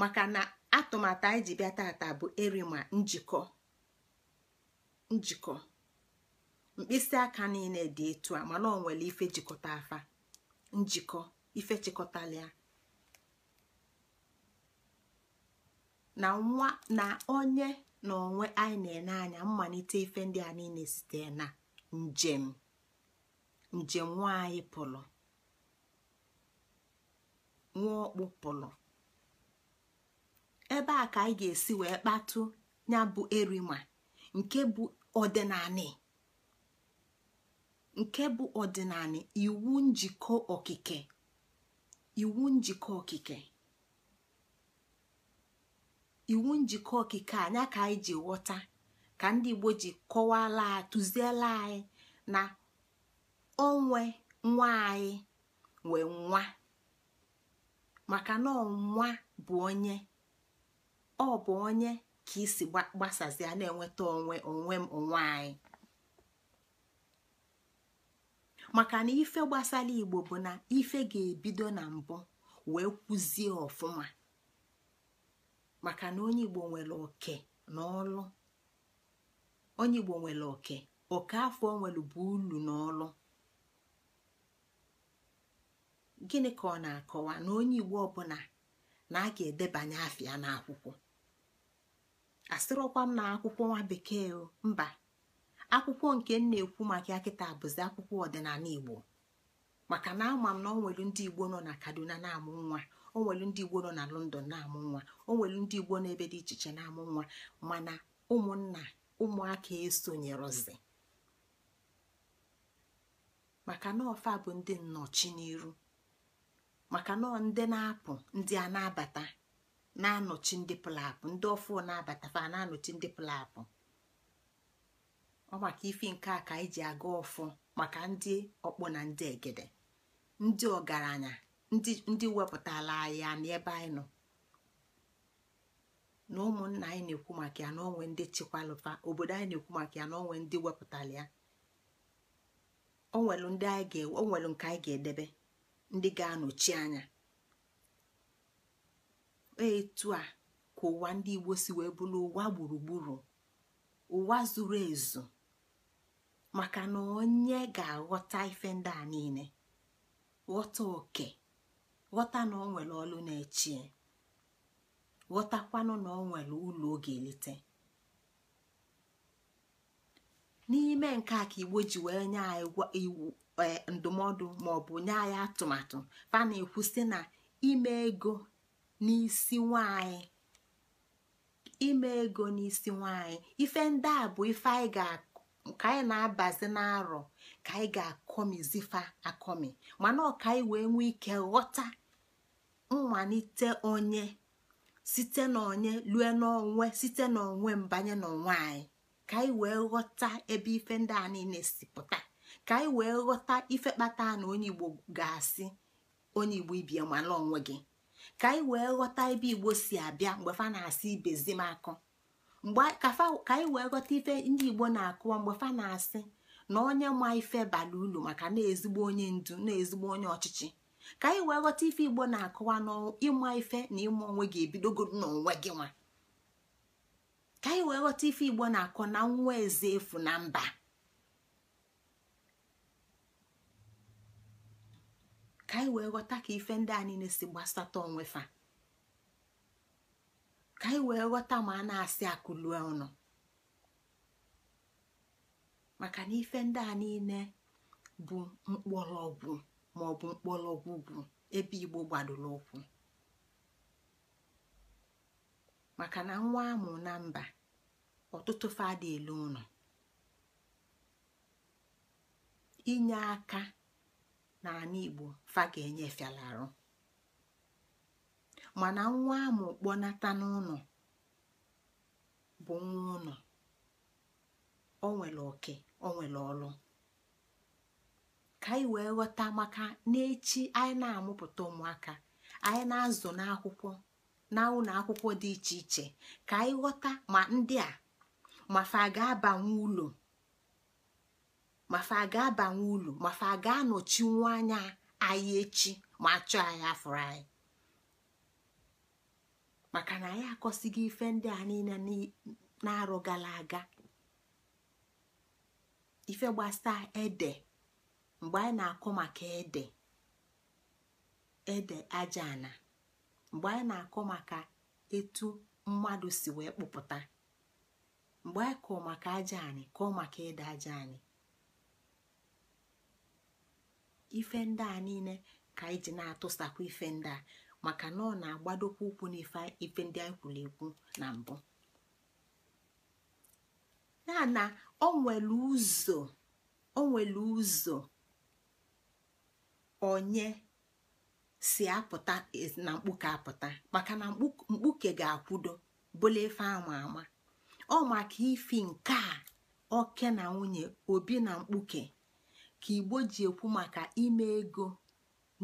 maka na atụmatụ anyị ji bịa tata bụ erima njikọ njikọ mkpịsị aka niile dị etu a mana ọ nwere ife jikọta afa njikọ ife chịkọtalịa na nwa na onye na onwe anyị na-ene anya mmalite ife ndị a niile site na njem njem nwa anyị pụrụ nwaọkpụ pụlụ ebe a ka anyị ga-esi wee kpatụ ya bụ erima nke bụ ọdịnanị iwu njikọ okike iwu njikọ okike iwu njikọ okike anya ka anyị ji ka ndị Igbo ji kọwala tụziela anyị na onwe nwa anyị wee nwa maka na ọnwa bụ onye ọ bụ onye ka isi gbasazie na-enweta onwe onwe m onwe anyị maka na ife gbasara igbo bụ na ife ga-ebido na mbụ wee kwụzie ọfụma maka na onye igbo nwere oke na onye igbo nwere oke oke afọ nwere bụ ulu na gịnị ka ọ na-akọwa na onye igbo ọbụla na a ga-edebanye afịa n'akwụkwọ asịrọkwa m na akwụkwọ nwa bekee mba akwụkwọ nke m na-ekwu maka ya kịta bụzi akwụkwọ ọdịnala igbo maka na ama m na onwelu ndị igbo nọ na kaduna na-amụ nwa onwelu ndị igbo nọ na london na-amụ nwa onwelu ndị igbo na-ebe dị iche iche na-amụ nwa mana ụmụnna ụmụaka esonyerozi maka na ọfa bụ ndị nnọchi n'iru maka nọ ndị na-apụ ndị a na-abata na-anọchi ndị pụlapụ ndị ọfụ na-abata fa na-anọchi ndị pụlapụ ọ maka ifi nke a ka anyị ji aga ọfụ maka ndị ọkpọ na ndị egede ndị ọgaranya ndị wepụtala ya n'ebe anyị nọ na ụmụnna anyị na-ekwu maka ya na onwe ndị chikwalụfa obodo anyị na-ekwu maka ya na onwe ndị wepụtala ya onwelu nke anyị ga-edebe ndị ga-anọchi anya etu a ka ụwa ndị Igbo si wee bụrụ ụwa gburugburu ụwa zuru ezu maka na onye ga-aghọta ife ndị a niile ghọta oke ghọta na ọ nwere ọlụ na-echie ghọtakwanụ na ọ nwere ụlọ oge ga-elite n'ime nke a ka Igbo ji wee nye anyị Eh, ndụmọdụ maọbụ nye anyị atụmatụ fa na-ekwu na ime ego n'isi nwanyị ime ego n'isi nwanyị ife ndị a bụ ife anyị ka anyị na-abazi n'arọ ka anyị ga-akọmizifa akọmi mana ọka anyị wee nwee ike ghọta mmalite onye site n'onye lue n'onwe site n'onwe mbanye n'onwe anyị ka anyị wee ghọta ebe ife ndị a niile si pụta ka anyị wee ghọta ife kpata na onye igbo ga-asị onye igbo ibie mala onwe gị ka anyị wee ghọta ebe igbo si abịa mgbe fa na-asị ibezi m akọ mgbe ka anyị wee ghọta ife ndị igbo na-akụwa mgbe fa na-asị na onye ma ife bara ulu maka na-ezigbo onye ndu na-ezigbo onye ọchịchị ka anyị wee ghọta ife igbo na-akụwa n'ịma ife na ịma onwe gị ebidogoro n'onwe gị nwa ka anyị wee ghọta ife igbo na-akọ na nwa eze efu na mba ka anyị wee ghọta ka ife ndị a si gbasata onwe fa ka anyị wee ghọta ma a na-asị akụlue ọnụ maka na ife ndị a niile bụ mkpọrọgwụ ma ọ bụ mkpọrọgwụ bụ ebe igbo gbadoro ụkwụ maka na nwa amụ na mba ọtụtụ fada elu ụlọ inye aka n'ala igbo fa ga-enye fiala arụ mana nwa amụ kpọnata n'ụlọ bụ nwa ụlọ o nwere oke o nwere ọlụ ka anyị wee ghọta maka n'echi anyị na-amụpụta ụmụaka anyị na-azụ n'akwụkwọ na akwụkwọ dị iche iche ka anyị ghọta ma ndị a ma fa ga-abanwe ụlọ mafa aga ga-abanye ulu mafa a ga-anọchinwu anya anyị echi ma achọ anyị afụrụ anyị maka na anyị akọsighị ife ndị a niile na-arụ gara aga ife gbasa ede mgbe anyị na-akọ maka ede ede aja ana mgbe anyị na-akọ maka etu mmadụ si wee kpụpụta mgbe anyị kọ maka aja anyị maka ede aja anyị ife ndị a niile ka anyị ji na-atụsakwa ife ndị a maka na ọ na-agbadokwa ụkwụ n'ife ndị anyị kwuru ekwu na mbụ ya na nwere ụzọ o nwere ụzọ onye si apụta na mkpuke apụta maka na mkpuke ga-akwudo bụla ife ama ama ọ maka ifi nke a oke na nwunye obi na mkpuke ka igbo ji ekwu maka ime ego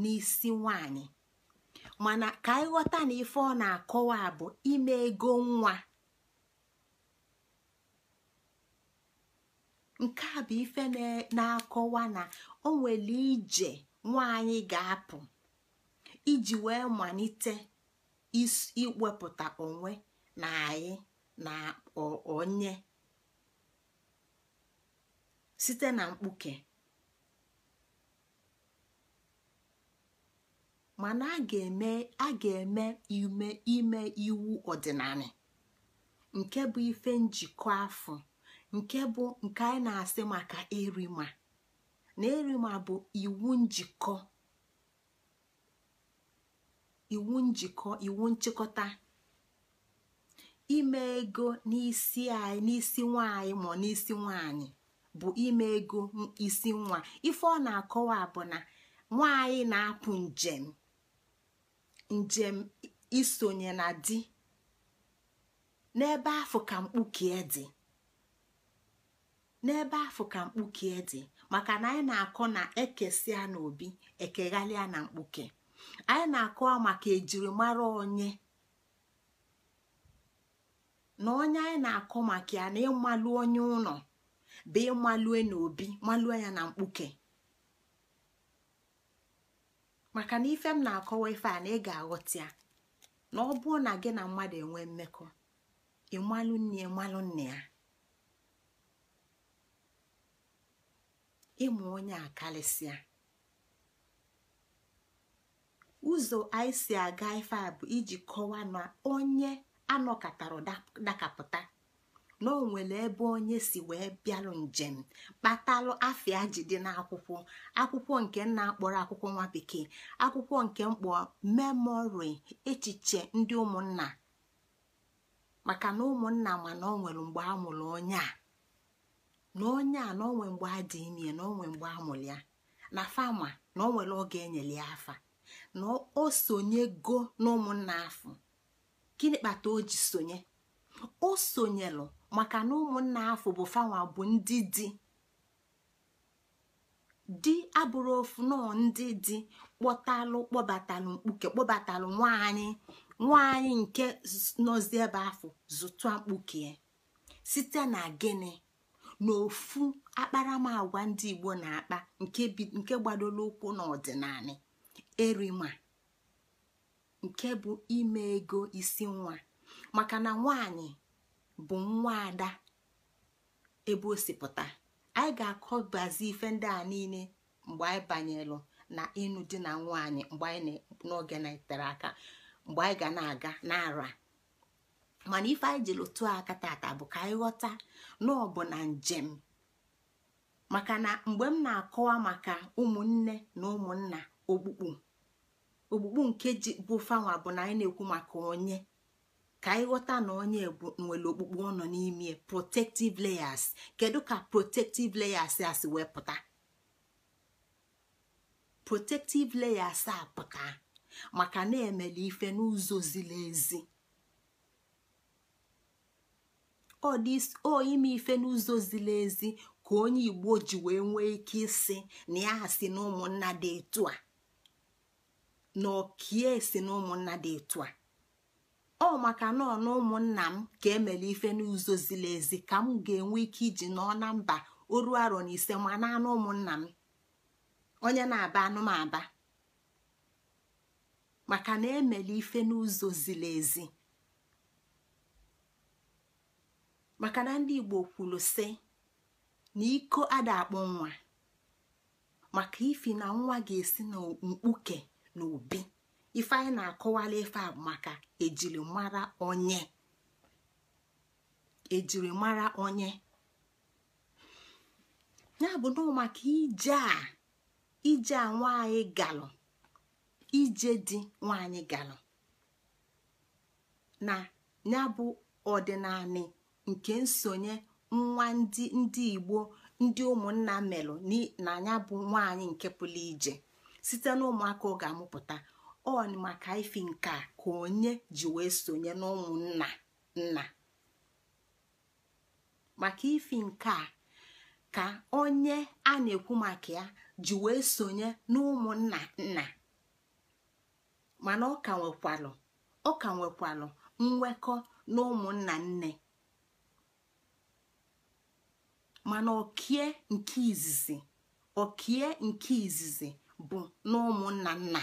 n'isi nwanyị mana ka anyị ghọta na ife ọ na-akọwa bụ ime ego nwa nke a bụ ife na-akọwa na o nwere ije nwaanyị ga-apụ iji wee malite iwepụta onwe na anyị na onye site na mkpuke mana a ga-eme ime iwu ọdịnala nke bụ ife njikọ afọ nke bụ nke anyị na-asị maka erima na erima bụ iwu njikọ iwu njikọ iwu nchịkọta ime ego n'isi anyị nwanyị ma n'isi nwanyị bụ ime ego isi nwa ife ọ na-akọwa bụ na nwanyị na-apụ njem njem isonye na di n'ebe afọ ka mkpukie dị n'ebe afọ ka mkpukie dị maka na anyị na-akọ na ekesia na obi ekeghalịa na mkpuke anyị na-akọ maka ejirimara onye na onye anyị na-akọ maka ya na ịmalụ onye ụlọ bụ ịmalue na obi malue ya na mkpuke maka na ife m na-akọwa ife a na ị ga-aghọta ya na ọ bụrụ na gị na mmadụ enwe mmekọ ịmalụ nne ịmalụ nne ya ịmụ onye a karịsịa ụzọ anyị si aga ife a bụ iji kọwaa na onye anọkọtara dakapụta na o nwere ebe onye si wee bịalụ njem kpatalụ afịa ji dị n'akwụkwọ akwụkwọ nke nna akpọrọ akwụkwọ nwa bekee akwụkwọ nke mkpọ memori echiche ndị ụmụnna maka na ụmụnna ma na o nwere mgbe a mụrụ onye a na onye a na onwe mgbe a dị ime na onwe mgbe a mụrụ ya na fama na onwere oge enyere ya afa na o go na ụmụnna gịnị kpata o ji sonye o sonyelụ maka na ụmụnna afọ bụ fanwa bụ ndị di di abụrụ ofu nọọ ndị di kpọtalụ kpọbatalụ mkpuke kpọbatalụ nwaanyị nwaanyị nke nọzi ebe afọ zụtụ mkpuke site na gịnị n'ofu akparamagwa ndị igbo na-akpa nke gbadoro ụkwụ n'ọdịnala erima nke bụ ime ego isi nwa maka na nwanyị. bụ nwa ada ebe o si anyị ga-akọbazi ife ndị a niile mgbe anyị banyelụ na ịnụ di na nwaanyị mgbe anyị n'oge na itere aka mgbe anyị ga na-aga n'ara mana ife anyị jiri tụọ aka tata bụ ka anyị ghọta na ọ bụ na njem maka na mgbe m na-akọwa maka ụmụnne na ụmụnna okpukpu okpukpu nke ji bụ fanwa bụ na anyị na-ekwu maka onye ka anyị ghọta na onye nwere okpukpu ọ nọ n'ime protective layers kedu ka protective layers a si wee pụta protective layers a pụta maka na-emele ife n'ụzọ ziri ezi ife n'ụzọ ziri ezi ka onye igbo ji wee nwee ike ịsị na ya e si na ụmụnna dị etu a na okie si na ụmụnna dị etu a ọ maka na na ụmụnna m ka emere ife n'ụzọ ziri ezi ka m ga-enwe ike iji nọọ na mba oru arọ na ise ma na anụ ụmụnna m onye na-aba na-aba maka na emere ife n'ụzọ ziri ezi maka na ndị Igbo kwuru sị na iko ada akpụ nwa maka ifi na nwa ga-esi na mkpuke na obi ife anyị na-akọwala ife a maka ejirimara onye ejirimara onye ya bụ na maka ije a ije a nwaanyị galụ ije dị nwaanyị galụ na ya bụ ọdịnala nke nsonye nwa ndị ndị igbo ndị ụmụnna melụ na ya bụ nwanyị nke pụrụ ije site na ụmụaka ọ ga-amụpụta on maka ifi nke a ka onye ji wee sonye n'ụmụnna nna maka ifi nke a ka onye a na-ekwu maka ya ji wee sonye n'ụmụnna nna mana ọ ka nwekwalụ ọ nwekwalụ nwekọ n'ụmụnna nne mana okie nke izizi okie nke izizi bụ n'ụmụnna nna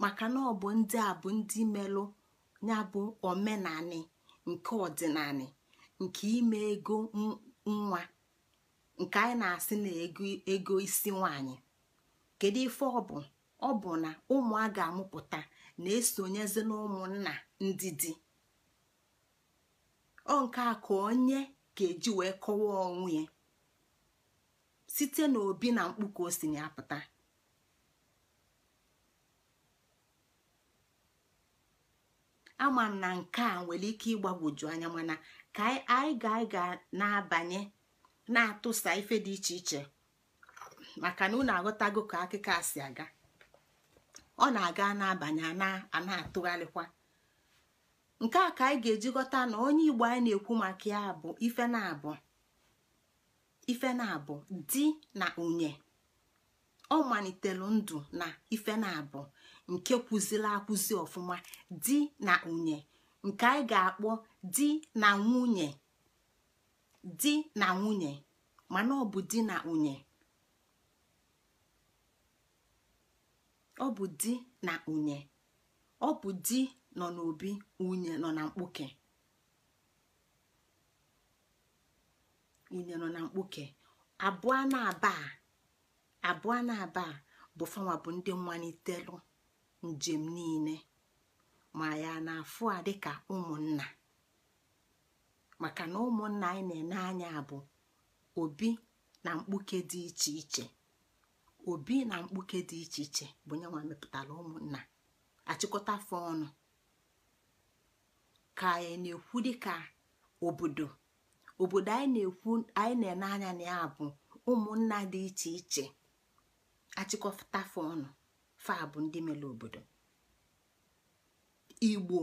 maka na ọ bụ ndị a bụ ndị melụ ya bụ omenani nke ọdịnani nke ime ego nwa nke anyị na-asị na ego isi nwanyị kedu ife ọ bụ ọ bụ na ụmụ a ga-amụpụta na-esonyezi na ụmụnna ndị di ọ nke a ka onye ga-eji wee kọwaa onwe ya site n'obi na mkpu ka o si na pụta. ama m na nke a nwere ike ịgbagwoju anya mana ka anyị ga anyị ga na-abanye na-atụsa ife dị iche iche maka na unu aghọtago ka akụkọ a si aga ọ na-aga na-abanye a na-atụgharịkwa nke a ka anyị ga-eji ghọta na onye igbo anyị na-ekwu maka ya bụ ife na-abụ ife na-abụ di na nwunye ọ malitere ndụ na ife na-abụ nke kwụziri akwụzi ọfụma di na nwunye nke anyị ga-akpọ di na nwunye di na nwunye mana ọ bụ di na nwunye ọ bụ di na nwunye ọ bụ di nọ n'obi nwunye nọ na mkpuke nwunye nọ na mkpuke abụọ na abaa abụọ na abaa bụ fanwa bụ ndị mmalitelụ njem niile ma ya na-afụ a dịka ụmụnna maka na ụmụnna anyị na-ene anya bụ obi na mkpuke dị iche iche obi na mkpuke dị iche iche bụ nyenwa mepụtara ụmụnna achịkọta afọ ọnụ ka anyị na-ekwu dịka obodo obodo anyị na-ekwu anyị na-ene anya na ya bụ ụmụnna dị iche iche achịkọta afọ ọnụ faa bụ ndị mere obodo igbo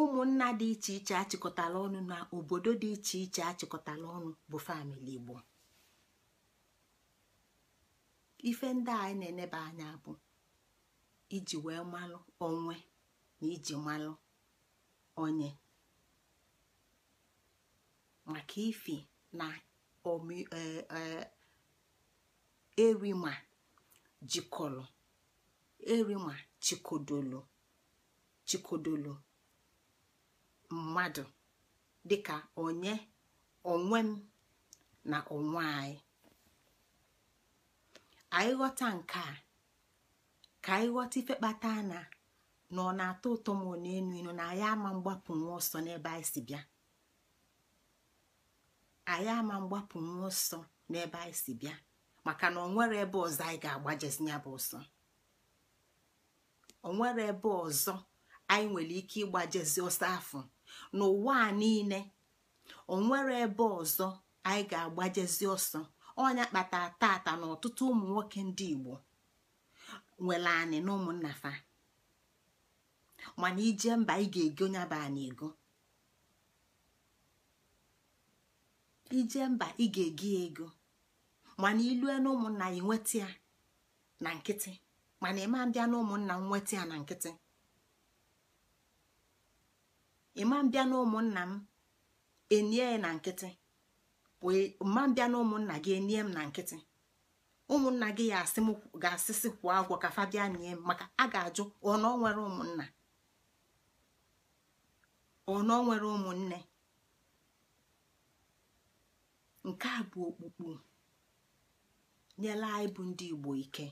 ụmụnna dị iche iche achịkọtala ọnụ na obodo dị iche iche achịkọtala ọnụ bụ famili igbo ife ndị anyị na-eneba anya bụ iji wee malụ onwe na iji malụ onye maka ife na erima eh, eh, jikọrọ erima chikodolo chikodolo mmadụ dịka onye onwe m na onwe anyị anyị ghọta nke a ka anyị ghọta ife kpata na na ọ na-atọ ụtọ ma ọ na-enu inu na anyị ama mgbapụ nwa ọsọ n'ebe anyị si bịa anyị ama mgbapụ nwa ọsọ n'ebe anyị si bịa maka na ọ nwere ebe ọzọ anyị ga-agbajezi ya bụ ọsọ onwere ebe ọzọ anyị nwere ike ịgbajezi ọsọ afọ n'ụwa a niile onwere ebe ọzọ anyị ga-agbajezi ọsọ ọnya kpatara tata na ọtụtụ ụmụ nwoke ndị igbo nwere anị na ụmụnna fa mana ije mba ị ga-ego nyaba anyị ego ije mba ị ga-ego mana ilue na ụmụnna ya nweta ya na nkịtị mana ịma mbịa na ụmụnna m nweta ya na nkịtị ịma mbịa na ụmụnna m enie na nkịtị e, ma mbịa na ụmụnna gị enie m na nkịtị ụmụnna gị ya ga-asịsị kwụọ agwọ ka fa bịa nie m maka a ga-ajụ ọnọ nwere ụmụnna ọnọ nwere ụmụnne nke a bụ okpukpu nyela anyị bụ ndị Igbo ike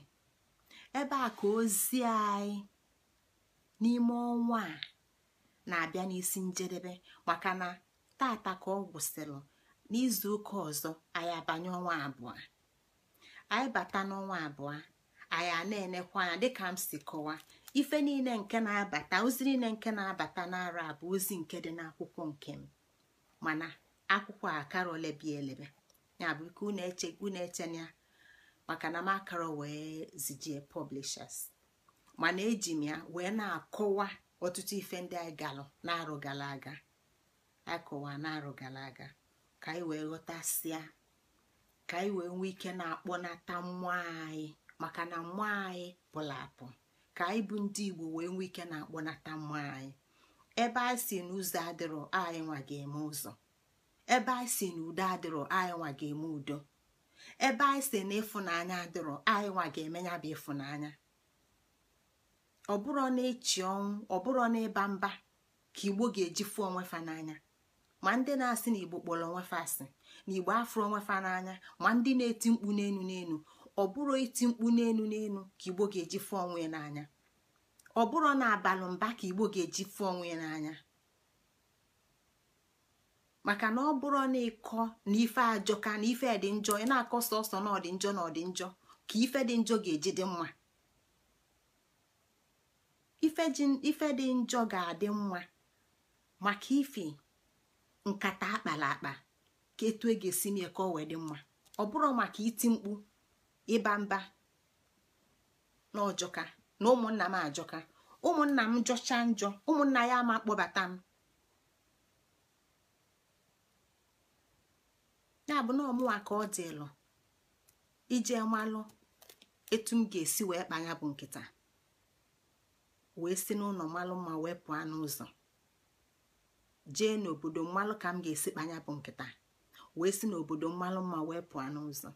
ebe a ka ozi anyị n'ime ọnwa a na-abịa n'isi njedebe maka na tata ka ọ gwụsịrị n'izu ụka ọzọ anyị abanye ọnwa abụọ anyị bata n'ọnwa abụọ anyị a na-enekwa anya dịka m si kọwa ife niile nke na-abata ozi niile nke na-abata n'ara bụ ozi nke dị n'akwụkwọ nke m mana akwụkwọ a karọla elebe ya bụ ike unu eche unu eche maka na m akara wee zijie publishers mana eji m ya wee na-akọwa ọtụtụ ife ndị anyị galụ na gara aga akọwa na aga ka anyị wee ghọtasịa ka anyị wee nwee ike na-akpọnata mmụọ anyị maka na mmụọ anyị pụrụ apụ ka anyị bụ ndị Igbo wee nwee ike na-akpọnata mmụọ anyị ebe anyị si n'ụzọ adịrọ anyị nwa ga-eme ụzọ ebe anyị si n'udo adịrọ anyị nwa ga-eme udo ebe anyị si na ịfụnanya adịrọ anyị nwa ga-emenya bụ ịfụnanya ọ bụrụ na ịchị ọnwụ ọ bụrụ na ịba mba ka igbo ga-eji fụ onwe fa n'anya ma ndị na-asị na igbo kpọrọ onwe fa asị na igbo afụrụ onwe fa n'anya ma ndị na-eti mkpu n'enu n'enu ọ bụrụ iti mkpu n'enu n'enu ka igbo ga-eji fụ onwe n'anya ọ bụrụ na abalị mba ka igbo ga-eji fụ onwe n'anya maka na ọ bụrụ na ịkọ na ife ajọ ka na ife dị njọ ị na-akọ sọsọ na ọdị njọ na ọdị njọ ka ife dị njọ ga-eji dị mma ife dị njọ ga-adị mma maka ife nkata akpara akpa ka etu e ga-esi mie ka ọ wee dị mma ọ bụrụ maka iti mkpu ịba mba na ọjọka na ụmụnna m ajọka ụmụnna m jọcha njọ ụmụnna ya ama kpọbata m ya bụ na ọmụwa ka ọ dịlụ ije mmalụ etu m ga-esi wee kpanya bụ nkịta wee si n'ụlọ mmalụ ma wee pụọ n'ụzọ jee n'obodo mmalụ ka m ga-esi kpanya bụ nkịta wee si n'obodo mmalụ ma wee pụọ n'ụzọ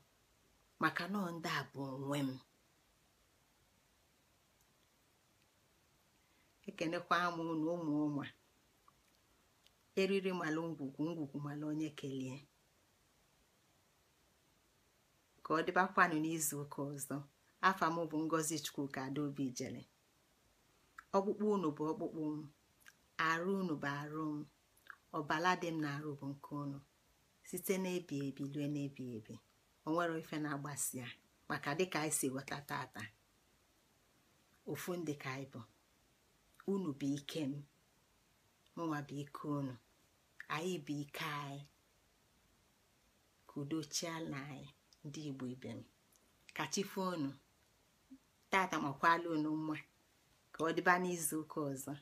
maka nọọ ndị a bụ onwe m ekenekwa m na ụmụ ụmụ eriri malụ ngwugwu ngwugwu malụ onye kelee ka ọ dịbakwanụ n'izu ụka ọzọ afọ m bụ ngozi chukwuka adaobi jele ọkpụkpụ unu bụ ọkpụkpụ m arụ unu bụ arụ m ọbala dị m na arụ bụ nke unu site n'ebi ebi lue n'ebi ebi onwere ife na-agbasi ya maka dịka anyị si ghọta tata ofu ndị ka anyị bụ unu bụ ike m mụnwa bụ ike unu anyị bụ ike anyị ka na anyị ndị igbo ibe m kachifo tata makwala mma ka ọ dịba n'izu ụka ọzọ